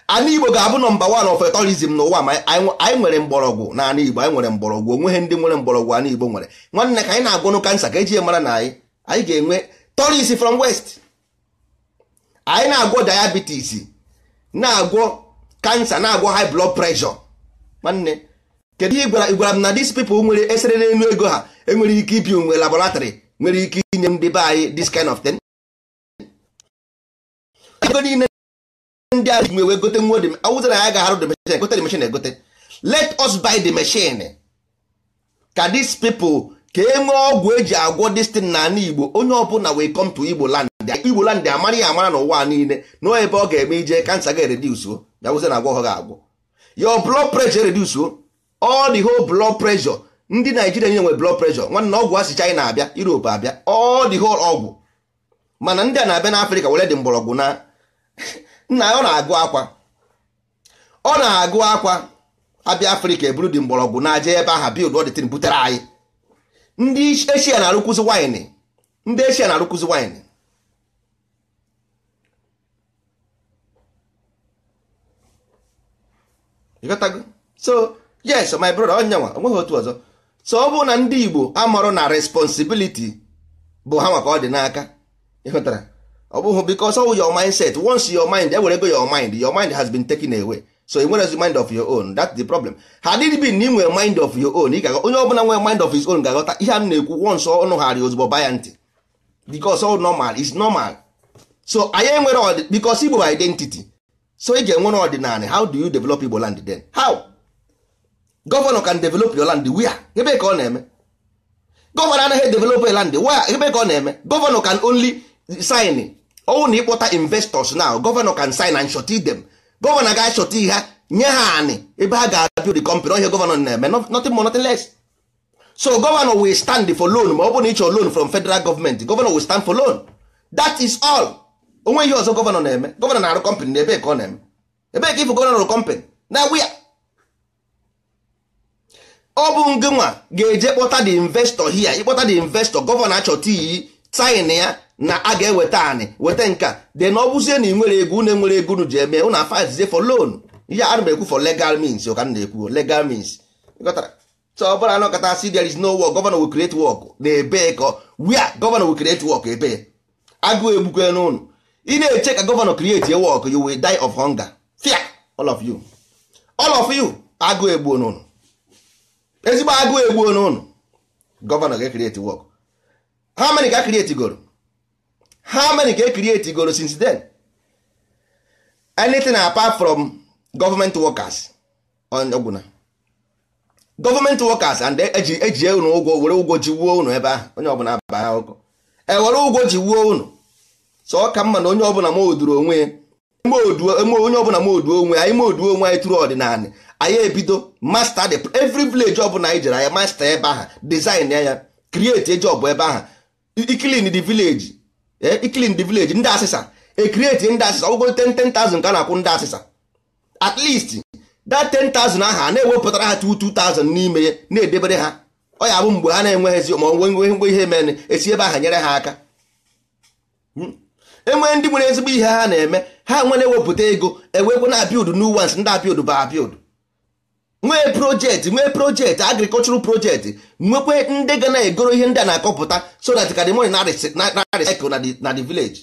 ana igbo ga-abụ nọmba wan of tourism n'ụwa ma anyị nwere mgbọrọgwụ na igbo anyị nwere mgbọrọgwụ onwe onweghị ndị nwere mgbọrọgwụ ana igbo nwere nwanne ka anyị na agụnụ kansa ka eji ya mara na anyị anyị ga-enwe tourist from west anyị na-agwọ diabetes na-agwọ kansa na-agwọ high blood pressure nwanne kedu ihe gwara gwara m na dis people nwere esere n'elu ego ha enwere ike ibi onwe laboratory nwere ike inye ndị be anyị this kind of thing ndị a ji wee gote nwa awụza na ya ga-arụ the machine gote the machine egote let us buy the machine ka these people ka e nwee ọgwụ eji agwọ destin na ala igbo onye ọbụla wee come to igbo land igbo land amara ya amara n'ụwa niile na ebe ọ ga-eme ije kansa ga-eredusuo ya wụza na agwọ ọ ga-agwọ your blood pressure redusuo all the whole blood pressure ndị naijiria niile nwe blood pressure nwanne ọgwụ asị china abịa europe abịa all the whole ọgwụ mana ndị a na-abịa n'afrịka were dị mgbọrọgwụ na nna ọ na-agụ akwa ọ na-agụ akwa abịa afrịka eburu dị mgbọrọgwụ na-aja ebe aha bild ọdịtin butere anyị ndị eshia na-arụkwụzi waịnị ndị eshia na-arụkwụzi waịnị so yes my brother onyenwa onweghị otu ọzọ so ọ bụrụ na ndị igbo amụrụ na responsibility bụ ha maka ọ dị n'aka ịhụtara ọ bụghị because ọwụ your mindset once your mind ewere ego your mind your mind has been taken away so ị nwere mind of your own that's the problem ha dịrị bi na ị nwere mind of your own ịgaghọ onye ọbụla nwere mind of his own ga-aghọta ihe a na-ekwu once ọnụ ghara ozugbo baya ntị because all normal is normal so anyị enwere because Igbo identity so ị e ga-enwere ọdịnala how do you develop Igbo land then how gọvanọ can develop your land where ebe ka ọ na-eme gọvanọ anaghị develop land where ebe ka ọ na-eme gọvanọ can only sign ọwụ na ịkpọta investors now gọvanọ can sign and short them gọvanọ ga achọta ha nye ha anị ebe ha ga-abịa the company ọhịa gọvanọ na-eme nothing more nothing less so gọvanọ will stand for loan ma ọ bụrụ na ịchọ loan from federal government gọvanọ will stand for loan that is all onwe ihe ọzọ gọvanọ na-eme gọvanọ na-arụ company na ebe ka ọ na-eme ebee ka ifụ gọvanọ rụ company na wia ọ bụ ngịnwa ga-eje kpọta the investor hia ịkpọta the investor gọvanọ achọta iyi tin ya na a ga-eweta anị weta nka de na ọ bụzie na ị nwere ego unu nwere ego unu ji eme unu afa for loan ihe a na-ekwu for legal means ka m na-ekwu legal means ọbụla na kata si there is no work governor will create work na ebe ka wia governor will create work ebe agụụ egbukwe n'ụnụ ị na-eche ka governor create a work you will die of hunger fear all of you all of you agụụ egbuo n'ụnụ ezigbo agụụ egbuo n'ụnụ governor ga create work how many ka create goro how many ka e create goro since then anything apart from government workers on ọgwụna government workers and e-, eji ejie ụnụ ụgwọ were ụgwọ ji wuo ụnụ ebe ahụ onye ọbụla aba ha ụkọ ewere ụgwọ ji wuo ụnụ so ọ ka mma na onye ọbụla ma onwe onye ọbụla ma oduo onwe anyị ma oduo onwe anyị tụrụ ọdịnala anyị ebido master the every village ọbụla anyị jere anyị master ebe ahụ design ya create job ebe ahụ ikilin the village Eh, clean the village ndị asịsa e create ndị asịsa ọgwụgo 10,000 ka a na-akwụ ndị asịsa at least that 10,000 ahụ a na-ewepụtara ha 2,000 n'ime ya na-edebere ha ọya ya mgbe ha na-enweghịzi ma onwe ngwe ihe mere esi ebe aha nyere ha aka hmm? enwee ndị nwere ezigbo ihe ha na-eme ha nwere ewepụta ego ewepụ na apịụdụ new ones ndị apịụdụ bụ apịụdụ nwee projekti nwee projekti agrikọlchural projekti nwekwe ndị ga na-egoro ihe ndị a na-akọpụta so that ka the money na-recycle na the village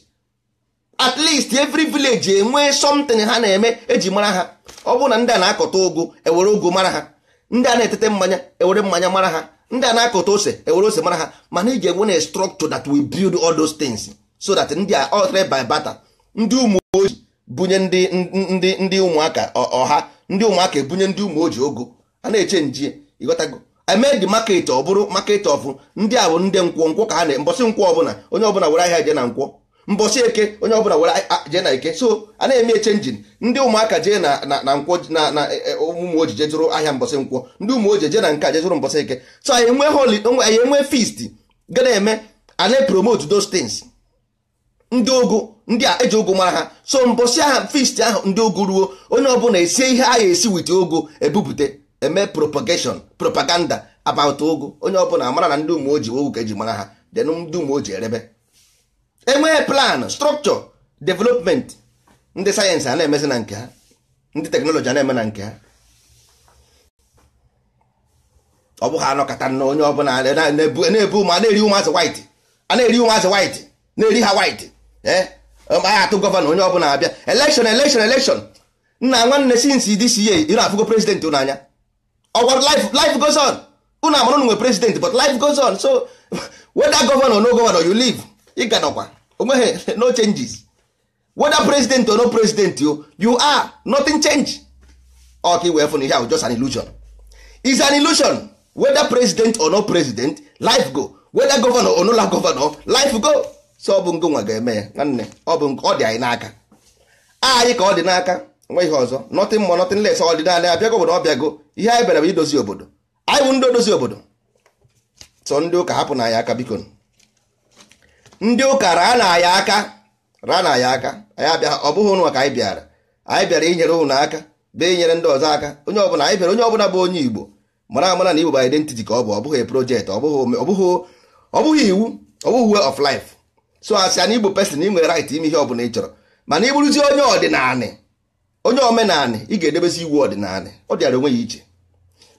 at least every village enwee something ha na-eme eji mara ha ọ bụrụ na ndị a na-akọta ụgụ ewere ụgụ mara ha ndị a na-etete mmanya ewere mmanya mara ha ndị a na-akọta ose ewere ose mara ha mana ị ga-enwe na structure that we build all those things so that ndị a all by barter ndị ụmụ ojii bunye ndị ụmụaka ọha ndị ụmụaka ebunye ndị ụmụ ojii ogo a na-eche nji ịghọtago i made the market ọ bụrụ market ọfụ ndị a bụ ndị nkwọ nkwọ ka a na mbọsị nkwọ ọbụla onye ọbụla were ahịa jee na nkwụ mbọsị eke onye ọbụla were jee na eke so a na-eme njin ndị ụmụaka jee na na nkwụ na na e, e, ụmụ ojii jee ahịa mbọsị nkwọ ndị ụmụ ojii jee na nke jee mbọsị eke so anyị enwe holi anyị enwe feast ga na-eme a na-epromote those things ndị ogu ndị a eji ogu mara ha so mbọsị aha fisti ahụ ndị ogu ruo onye ọbụla esie ihe a esi wit ogu ebupụte eme propagation propaganda about ogu onye ọbụla mara na ndị umeoji ogu ka eji mara ha den ndị umeoji erebe enwee plan structure development ndị sayensị a na-emezi na nke ha ndị teknọlọji a na-eme na nke ha ọ ha anọkọta na onye ọbụla na-ebu ma na-eri ụmụazị white a na-eri ụmụazị white na-eri ha white aha eh? atụ gọvanọ onye ọbụla abịa elekshon elekshon elekshon nna nwanne sinsi dis ye ị na-afụgo president ụnụ anya ọgwara life life goes on ụnụ amara ụnụ nwe president but life goes on so whether gọvanọ no gọvanọ you live ị O onweghị no changes whether president or no president you, you are nothing change ọka iwe fụ na ihe ahụ just an illusion is an illusion whether president or no president life go whether governor or no governor life go so ọ bụ nke nwa ga-eme ya nwanne ọ bụ ọ dị anyị n'aka anyị ka ọ dị n'aka nweghị ọzọ nọtị mọ ọ dị ọdịnala ya bịago obodo ọbịago ihe anyị bịara bụ idozi obodo anyị bụ ndị odozi obodo so ndị ụka hapụ na anyị aka biko ndị ụka raa na anyị aka raa na anyị aka anyị abịa ọ bụghị ụnụ anyị bịara anyị bịara inyere ụnụ aka bee inyere ndị ọzọ aka onye ọbụla anyị bịara onye ọbụla bụ onye igbo mara amara na igbo ba identity ka ọ bụ ọ bụghị projekti ọ bụghị iwu ọ bụghị of life so asị anyị bụ pesin ị nwere right ime ihe ọbụla ị chọrọ mana ị bụrụzie onye ọdịnanị onye omenanị ị ga-edebezi iwu ọdịnalị ọ dịara onwe ya iche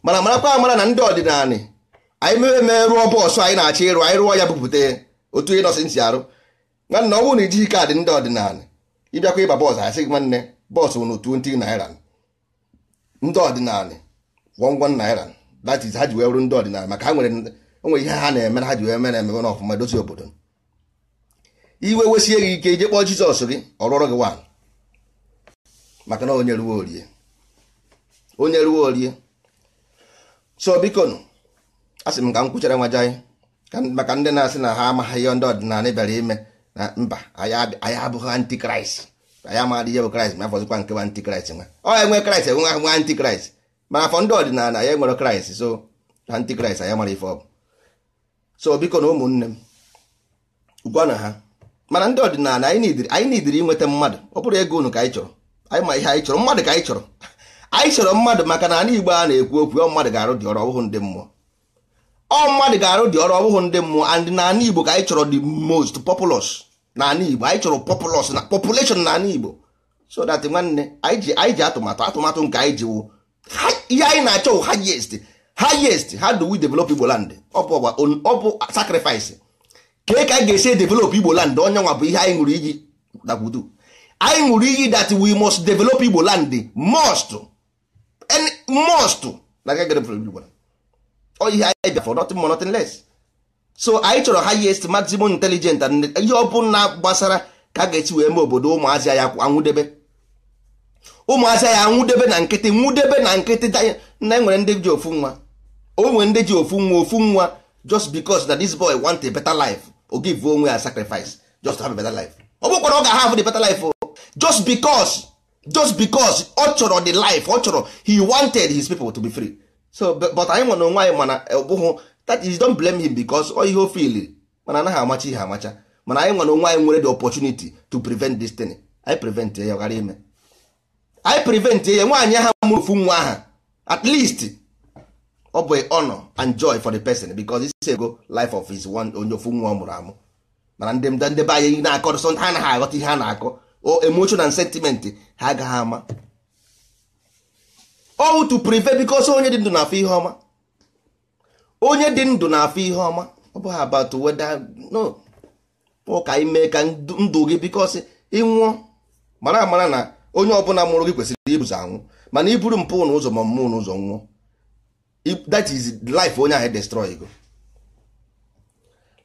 mana marakwa amara na ndị ọdịnalị anyị mere mee rụọ bọọsụ anyị na-achọ ịrụ anyị rụọ ya bupụta otu onye nọsị ntị arụ nwanna ọ bụrụ na ijighị kaadị ndị ọdịnanị ịbịakwa ịba bọọsụ asị gị nwanne bọọsụ nụ 20 naira ndị ọdịnanị gwọngwọ naira that is ha ji wee bụrụ ndị ọdịnanị maka ha nwere ihe ha na-emere ha ji wee mere ememe n'ọfụma dozi obodo iwe wesie gị ike ije kpọọ jizọs gị ọrụọrụ gị nwaanyị maka na onye ruo orie onye ruo orie so biko nụ asị m ka m kwụchara nwaje anyị maka ndị na-asị na ha amaghị ihe ndị ọdịnala bịara ime na mba anyị abụghị antikraịst anyị amaghị ihe bụ kraịst ma afọzikwa nke bụ antikraịst nwa ọ enwe kraịst enwe nwe antikraịst mana afọ ndị ọdịnala anyị nwere kraịst so antikraịst anyị mara ife ọ bụ so biko ụmụnne m gwa na ha mana ndị ọdịnala anyị nidiri inweta mmadụ ọ bụrụ ego unu ka anyị chọrọ anyị ma ihe anyị chọrọ mmadụ ka anyị chọrọ anyị chọrọ mmadụ maka na ana igbo a na-ekwu okwu ọ mmadụ ga-arụ dị ọrụ ọbụghụ ndị mmụọ ọ mmadụ ga-arụ dị ọrụ ọbụghụ ndị mmụọ and na anị igbo ka anyị chọrọ the most populous na ana igbo anyị chọrọ populous na population na anị igbo so that nwanne anyị ji atụmatụ atụmatụ nke anyị ji ihe anyị na-achọ wụ highest ha how develop igbo land ọ bụ sacrifice ka ka anyị ga-esi edevelop igbo land onye nwa bụ ihe anyị ṅụrụ iyi dakwudu anyị ṅụrụ iyi that we must develop igbo land must any must na ga e develop igbo land ọ ihe anyị bịa for nothing more nothing less so anyị chọrọ highest maximum intelligent and ihe ọ bụla gbasara ka a ga-esi wee mee obodo ụmụazị ya anwụdebe ụmụazị ya anwụdebe na nkịtị nwụdebe na nkịtị na enwere ndị ji ofu nwa o nwere ndị ji ofu nwa ofu nwa just because that this boy want a better life o onwe ya sacrifice just to have a better life ọ bụkwara ọ ga-have the better life oh. just because just because ọ chọrọ the life ọ chọrọ he wanted his people to be free so but anyị nwe na onwe anyị mana ọbụghụ eh, that is don't blame him because ọ ihe o fili mana anaghị amacha ihe amacha mana anyị nwe na onwe anyị nwere the opportunity to prevent this thing anyị prevent ya ghara ime anyị prevent ya nwaanyị ha mụrụ ofu nwa aha at least ọ bụ honor and joy for the person because isi ego life of his one onye ofu nwa ọ mụrụ amụ mana ndị mda ndebe anyị na-akọ sọ ha aghọta ihe a na-akọ o emotion and sentiment ha agaghị ama ow to prevent because onye dị ndụ na afọ ihe ọma onye dị ndụ na-afụ ihe ọma ọ bụghị about whether no ụka ime ka ndụ gị because ịnwụọ mara amara na onye ọbụla mụrụ gị kwesịrị ibuzo anwụ mana iburu mpụ n'ụzọ ma mmụọ n'ụzọ nwụọ that is life onye ahụ destroy go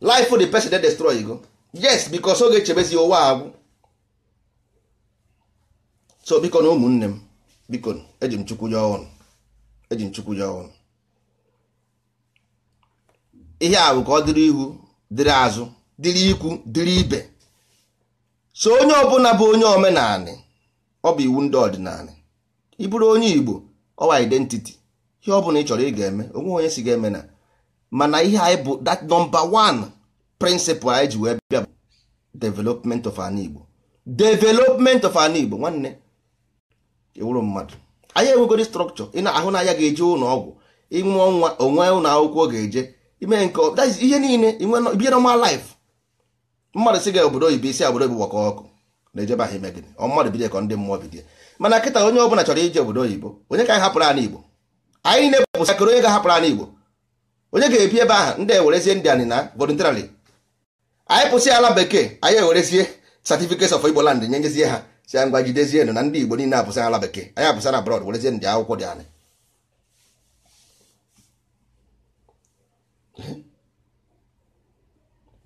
life the person that destroy go yes because oge chebezi ụwa agwụ so biko na ụmụnne m biko eji m chukwu ya ọnụ eji m chukwu ya ọnụ ihe a ka ọ dịrị ihu dịrị azụ dịrị ikwu dịrị ibe so onye ọbụla bụ onye omenanị ọ bụ iwu ndị ọdịnala ị bụrụ onye Igbo ọwa identity ihe ọ bụla ị chọrọ ị ga-eme onwe onye si ga-eme na mana ihe anyị bụ that number one principle anyị ji wee bịa bụ development of an Igbo development of an Igbo nwanne ewuru mmadụ anyị enwegoro structure ị na-ahụ n'anya ga-eje ụlọ ọgwụ ịnwe ọnwa onwe ụlọ akwụkwọ ga-eje ime nke ihe niile bie normal life mmadụ si ga obodo oyibo isi obodo oyibo gbakọ ọkụ na-ejebe ahụ ime gịnị ọ mmadụ bido ka ndị mmụọ bido mana kịta onye ọbụla chọrọ ije obodo oyibo onye ka anyị hapụrụ anyị Igbo anyị na-epụpụta onye ga-ahapụrụ anyị igbo onye ga-ebi ebe ahụ ndị ewerezie ndị anyị na voluntarily anyị pụsị ala bekee anyị ewerezie certificates of igbo land nyenyezie ha si ya ngwa jidezie nụ na ndị igbo niile apụsị ala bekee anyị apụsị na abroad werezie ndị akwụkwọ dị anyị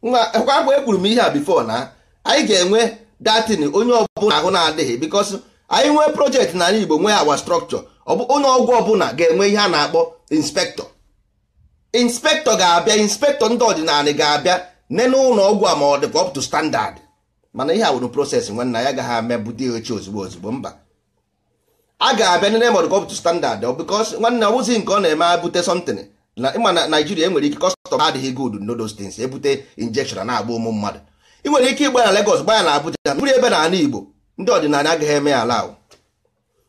nwa mgbe ekwuru m ihe a bifo na anyị ga-enwe datin onye ọbụla ahụ na-adịghị bikos anyị nwee projekti na ala igbo nwee awa strọkchọ onye ọgwụ ọbụla ga-enwe ihe a na-akpọ inspektọ inspektọ ga-abịa inspektọ ndị ọdịnala ga-abịa nene ụlọ ọgwụ a ma ọ dịkwa up to standard mana ihe a wụrụ prosesị nwanna ya agaghị ame bute oche ozugbo ozugbo mba a ga-abịa nene ma ọ dịkwa up to standard because nwanne ọ bụzi nke ọ na-eme abute something na ịma na Naịjirịa enwere ike kọstọm adịghị good no those things ebute injection na-agba ụmụ mmadụ ị nwere ike ịgba na Lagos gbaya na Abuja mmiri ebe na ala Igbo ndị ọdịnala agaghị eme ya ala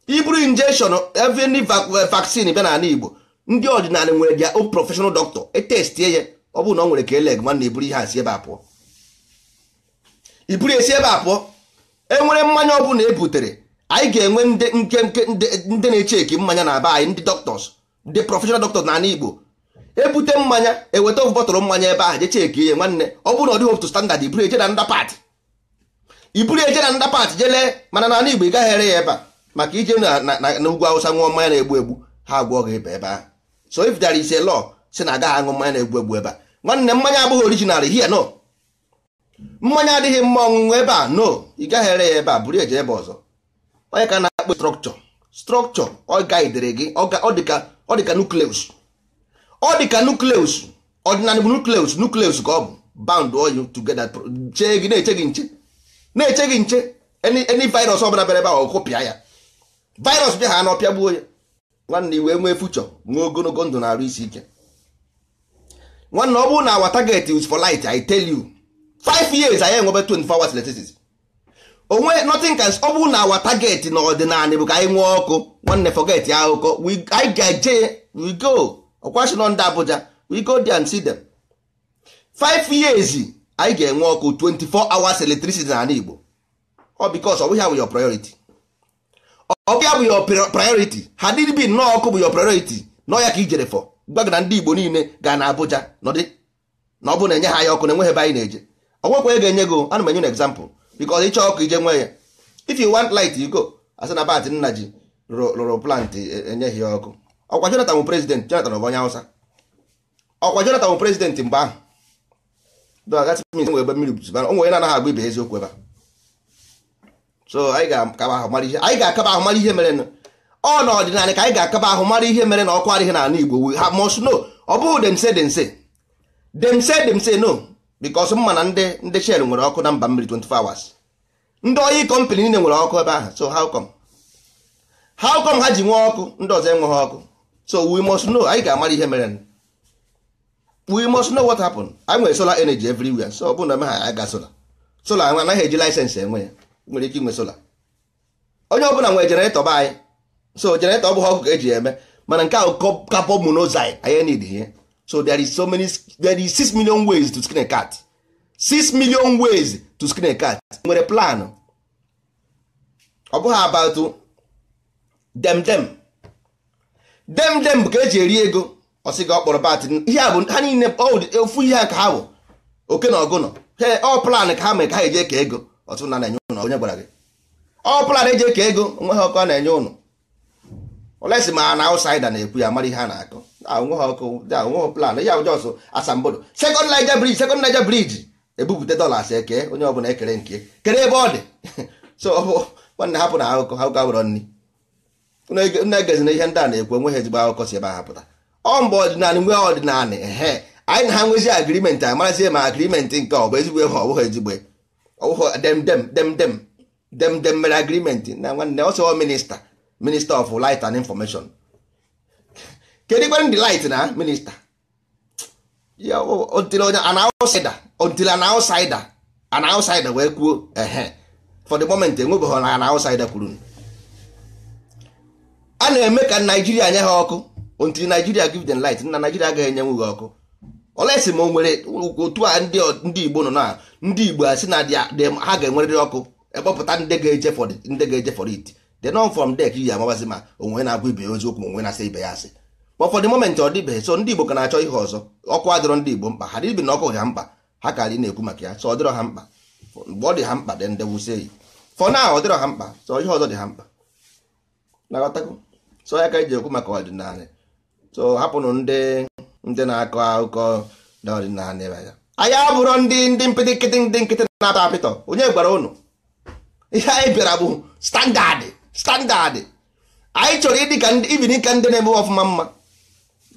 iburu injection even eh, vaccine bịa n'ala Igbo ndị ọdịnala nwere dia o professional doctor etestie ya ọ bụrụ na ọ nwere ka eleg nwanne iburu ihe asị ebe a pụọ iburu esi ebe a pụọ enwere mmanya ọ bụla ebutere anyị ga-enwe ndị na-echeki mmanya na aba anyị ndị doctors ndị professional doctors n'ala Igbo ebute mmanya eweta of bọtụrụ mmanya ebe ahụ jecheki ihe nwanne ọ bụrụ na ọ dịghị otu standard iburu eje na ndapat iburu eje na ndapat jelee mana n'ala Igbo ị gaghị ere ya ebe a maka ije na ugwu awụsa ṅụọ mmanya na-egbu egbu ha agwọ gị ebe ebe ahụ so if there is a law si na agaghị aṅụ mmanya na-egbu egbu ebe a nwanne mmanya abụghị original here no mmanya adịghị mma ọṅụṅụ ebe a no ị gaghị ere ya ebe a buru eje ebe ọzọ onye ka na-akpọ strọkchọ strọkchọ ọ gaidere gị ọ dịka nukleus ọ dịka nukleus ọdịnala bụ nukleus nukleus ka ọ bụ bound all together chee gị na-eche gị nche na-eche gị nche eni virus ọ bụla bịara ebe ahụ ọkụpịa ya virus bịa ha na gbuo ya nwanne wee nwee fuchọ nwee ogologo ndụ na-arụ isi ike nwanne ọ bụrụ na awa target is for light I tell you five years anyị enwebe 24 hours electricity onwe nothing can ọ bụrụ na awa target na ọdịnala bụ ka anyị nwee ọkụ nwanne forget ya akụkọ anyị ga-eje we go ọkwashino ndị Abuja we go there and see them five years anyị ga-enwe ọkụ 24 hours electricity na ala Igbo ọ because ọ bụghị your priority ọbịa bụ your priority ha dịrị bi nnọọ ọkụ bụ your priority nọ ya ka ijere fọ gwa gị na ndị Igbo niile ga na Abuja nọdị na ọ bụ na enye ha ya ọkụ na enweghị ebe anyị na-eje ọgwekwa ya ga-enye gị ana m enye na example because ịchọ ọkụ ije nwe ya if you want light you go asị na bat nna ji rụrụ plantị e, e, enyeghị ya ọkụ ọkwa Jonathan bụ prezident Jonathan bụ onye Hausa ọkwa Jonathan bụ prezident mgbe ahụ ebe mmiri bụzibara onwe onye na-anaghị agba ibe eziokwu ebe a so anyị ga-akaba ahụ mara ihe anyị ga-akaba ahụ mara ihe mere ọ na ọdịnala ka anyị ga-akaba ahụ mara ihe mere na ọkụ adịghị n'ala Igbo ha must know ọ bụghị demse demse demse demse no because mma na ndị ndị shell nwere ọkụ na mba mmiri 24 hours ndị oyi kọmpanị niile nwere ọkụ ebe ahụ so how come how come ha ji nwee ọkụ ndị ọzọ enweghị ọkụ so we must know anyị ga-amara ihe mere we must know what happened anyị nwere solar energy everywhere so ọ bụrụ na eme ha aga solar solar anaghị eji laịsensị enwe ya nwere ike inwe sola onye ọbụla nwere jeneretọ be anyị so jeneretọ ọ bụghị ọkụ ka e eji eme mana nke ahụ kapọ monoxide anyị need ihe so there is so many there is six million ways to screen a cat six million ways to screen a cat nwere plan ọ bụghị about dem dem dem dem bụ ka eji eri ego ọsị gị ọ kpọrọ bat ihe a bụ ha niile ofu ihe ka ha bụ oke na ọgụ nọ ọ plan ka ha mee ka ha eje ka ego ọtụtụ na na-enye ụnụ onye gwara ọ bụla na-eji eke ego nweghị ọkụ a na-enye ụnụ olesi ma na ausaida na-ekwu ya mara ihe na akụ ha ọkụ onwe plan ya ụjọ ọsọ asambodo sekọnd naija sekọnd naija dọlas onye ọbụla ekere nke kere ebe ọ ihe ndị a na-ekwu ọdịnala nwee anyị na ha nwezi amarazie ma agrimenti nke ọ bụ ezigbo ihe ọ bụghị ezigbo dem oh, oh, dem dem dem dem dem mere agreement na nwanne ọsọ minista minista of light and information kedu kwere ndị light na minista ya oh, until an outsider until an outsider an wee kwuo ehe for the moment enwebeghị na an outsider kwuru a na-eme ka naijiria nye eh, ha ọkụ until naijiria give dem light na naijiria agaghị enye ha ọkụ olesi ma o nwere otu a ndị igbo nọ na ndị igbo a si na ha ga-enwerịrị ọkụ ekpọpụta ndị ga-eje for ndị ga-eje for it the non from dek yi amabazi ma onwe na-agwa ibe ya oziokwu ma onwe na-asa ibe ya asị but for the moment ọ dịbeghị so ndị igbo ka na-achọ ihe ọzọ ọkụ adịrọ ndị igbo mkpa ha dịbi na ọkụ ha mkpa ha ka dị na-ekwu maka ya so ọ dịrọ ha mkpa mgbe ọ dị ha mkpa dị ndị wusie yi for now ọ dịrọ ha mkpa so ihe ọzọ dị ha mkpa so ya ka eji ekwu maka ọdịnala so hapụnụ ndị ndị na-akọ akụkọ n'ọdịnala anya anyị abụrọ ndị ndị mpịtị nkịtị ndị nkịtị na-atọ apịtọ onye gwara ụnụ ihe anyị bịara bụ standadị standadị anyị chọrọ ịdịka ka ibiri ka ndị na-eme ọfụma mma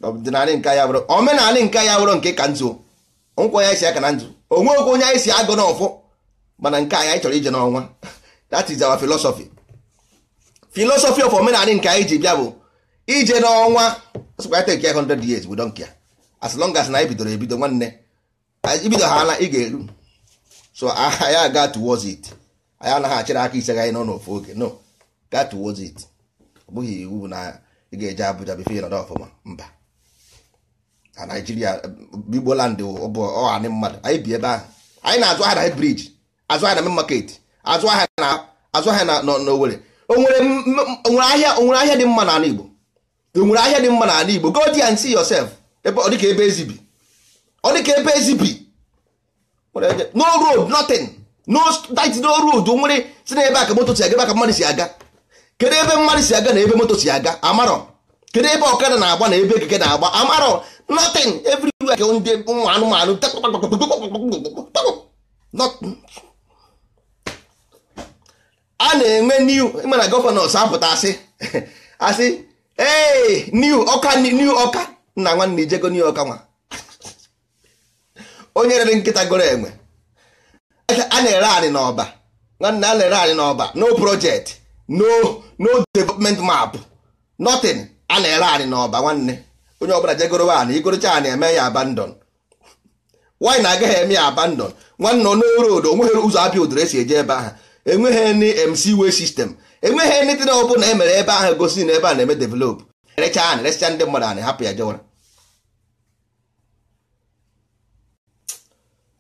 ọdịnala nke anyị abụrụ omenala nke anyị abụrụ nke ka nzu nkwa ya esi aka na nzu onwe okwu onye anyị si agụ n'ọfụ mana nke anyị anyị chọrọ ije n'ọnwa that is our philosophy philosophy of omenala nke anyị ji bịa bụ ije n'ọnwa 100 years bụ don't as long as na anyị bidoro ebido nwanne ibido ha ala ị ga-eru so anyị aga towards it anyị anaghị achịrị aka ise anyị nọ n'ofu oge no ga towards it ọ bụghị iwu na ị ga-eje Abuja bife ịnọdụ ọfụma mba na Naijiria um, Igboland bụ ọhanị mmadụ anyị bi ebe ahụ anyị na-azụ ahịa na brij azụ ahịa na main market azụ ahịa na azụ ahịa na n'Owere onwere ahịa dị mma n'ala Igbo onwere ahịa dị mma n'ala Igbo go there and see yourself ọ dịka ebe ezi bi ọ dịka ebe ezi bi no road nothing no that no road nwere si na ebe aka moto si aga ebe aka mmadụ si aga kedu ebe mmadụ si aga na ebe moto si aga amarọ kedu ebe ọkada na-agba na ebe ekeke na-agba amarọ nothing everywhere ka ndị ụmụ anụmanụ a na-enwe new mana gọvanọs apụta asị asị ee new ọka new ọka nna nwanne ijego new york nwa onye rere nkịta goro enwe a na-ere anyị n'ọba nwanne a na-ere anyị n'ọba no project no no development map nothing a na-ere anyị n'ọba nwanne onye ọbụla jegoro anyị igorocha anyị eme ya abandon nwaanyị na-agaghị eme ya abandon nwanne ọnụrụ odo onweghị ụzọ apịa odoro esi eje ebe ahụ enweghị ndị mc wey sistem enweghị ndị dị na emere ebe ahụ gosi na ebe a na-eme develop erecha anyị recha ndị mmadụ anyị hapụ ya jewara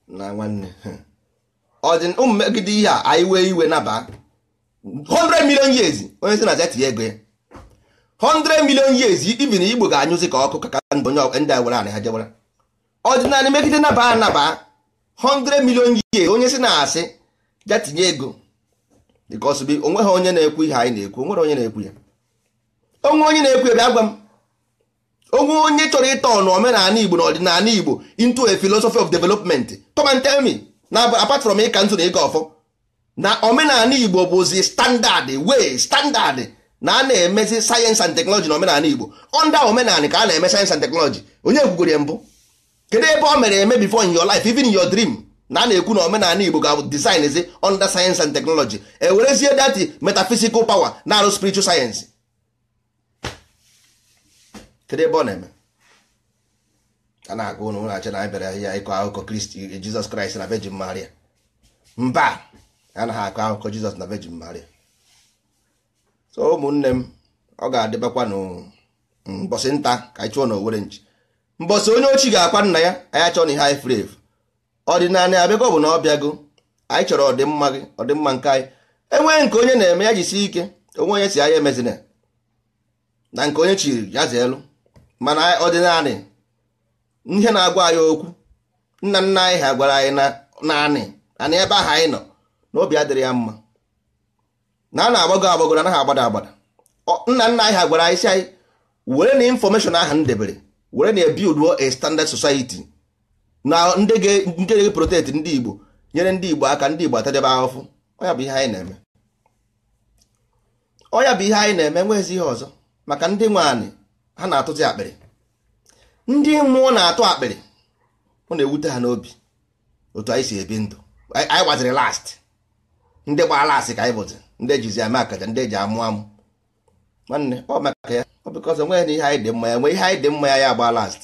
na nwanne ọ dị ụmụ megide ihe a anyị wee iwe naba 100 million years onye si na aja tinye ego ya 100 million years ibi na igbo ga-anyụzi ka ọkụ ka ndị onye ndị awara ana ha jewara ọdịnala megide naba anaba 100 million years onye si na asị ja tinye ego dịka ọsụbi onwe ha onye na-ekwu ihe anyị na-ekwu onwere onye na-ekwu ya onwe onye na-ekwu ya bịa gwa m onwe onye chọrọ ịtọ na omenala igbo na ọdịnala igbo into a philosophy of development come and tell me na apart from ịka ntụ na ịga ọfọ na omenala igbo bụzi standard way standard na a na-emezi sayensị and teknọlọji na omenala igbo onda omenala ka a na-eme sayensị and teknọlọji onye kwugoro mbụ kedu ebe ọ mere eme before in your life even in your dream na a na-ekwu na omenala igbo ga-abụ design zi under sayensị and teknọlọji ewerezie dati metaphysical power na arụ spiritual sayensị kedu a na-agụ ụnụ na-achọ na anyị bịara ya ịkọ akụkọ kristi jizọs kraịst na vejin maria mba a anaghị akọ akụkọ jizọs na vejin maria so ụmụnne m ọ ga-adịbakwa mbọsị nta ka anyị chụọ na owere nchi mbọsị onye ochi ga-akwa nna ya anyị achọ na ihe anyị furu efu ọdịnala abịago bụ na ọ bịago anyị chọrọ ọdịmma gị ọdịmma nke anyị enweghị nke onye na-eme ya jisi ike onwe onye si anya emezina na nke onye chiri ya zaa elu mana naanị. ihe na-agwa anyị okwu nna nna anyị ha gwara anyị na naanị anị ebe ahụ anyị nọ na obi adịrị ya mma na a na-agbago na anaghị agbada agbada nna nna anyị ha gwara anyị si anyị were na infọmeshọn ahụ m debere were na ebiuduo a standard society na ndị ga protect ndị Igbo nyere ndị Igbo aka ndị Igbo atadebe ahụfụ ọya bụ ihe anyị na-eme ọya bụ ihe anyị na-eme nwezi ihe ọzọ maka ndị nwaanyị ha na-atụzi akpịrị ndị mmụọ na-atụ akpịrị ọ na-ewute ha n'obi otu anyị si ebi ndụ anyị gbaziri last ndị gbara last ka anyị bụzi ndị ejizi ama akaja ndị eji amụ amụ nwanne ọ maka ya ọ bịkọz nwe na ihe anyị dị mma ya nwe ihe anyị dị mma ya ya agba last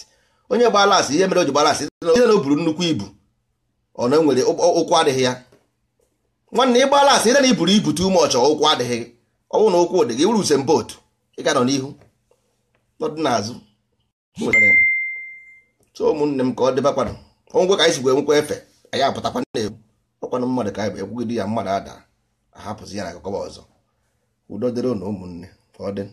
onye gbaa last ihe mere o ji gbaa last ihe na o buru nnukwu ibu ọ na nwere ụkwụ adịghị ya nwanne ị gbaa last ihe na iburu ibu too much ụkwụ adịghị ọ bụrụ na ụkwụ dị gị wuru usem botu ị ga nọ n'ihu n'ọdị n'azụ so ụmụnne m ka ọ dịba kwanụ ngwe ka anyị si wee nwekwa efe anyị apụtakwa na-egbu ọkwanụ mmadụ ka anyị ekwugide ya mmadụ ada ahapụzi ya na akụkọ ọzọ udo dịrị na ụmụnne ka ọ dị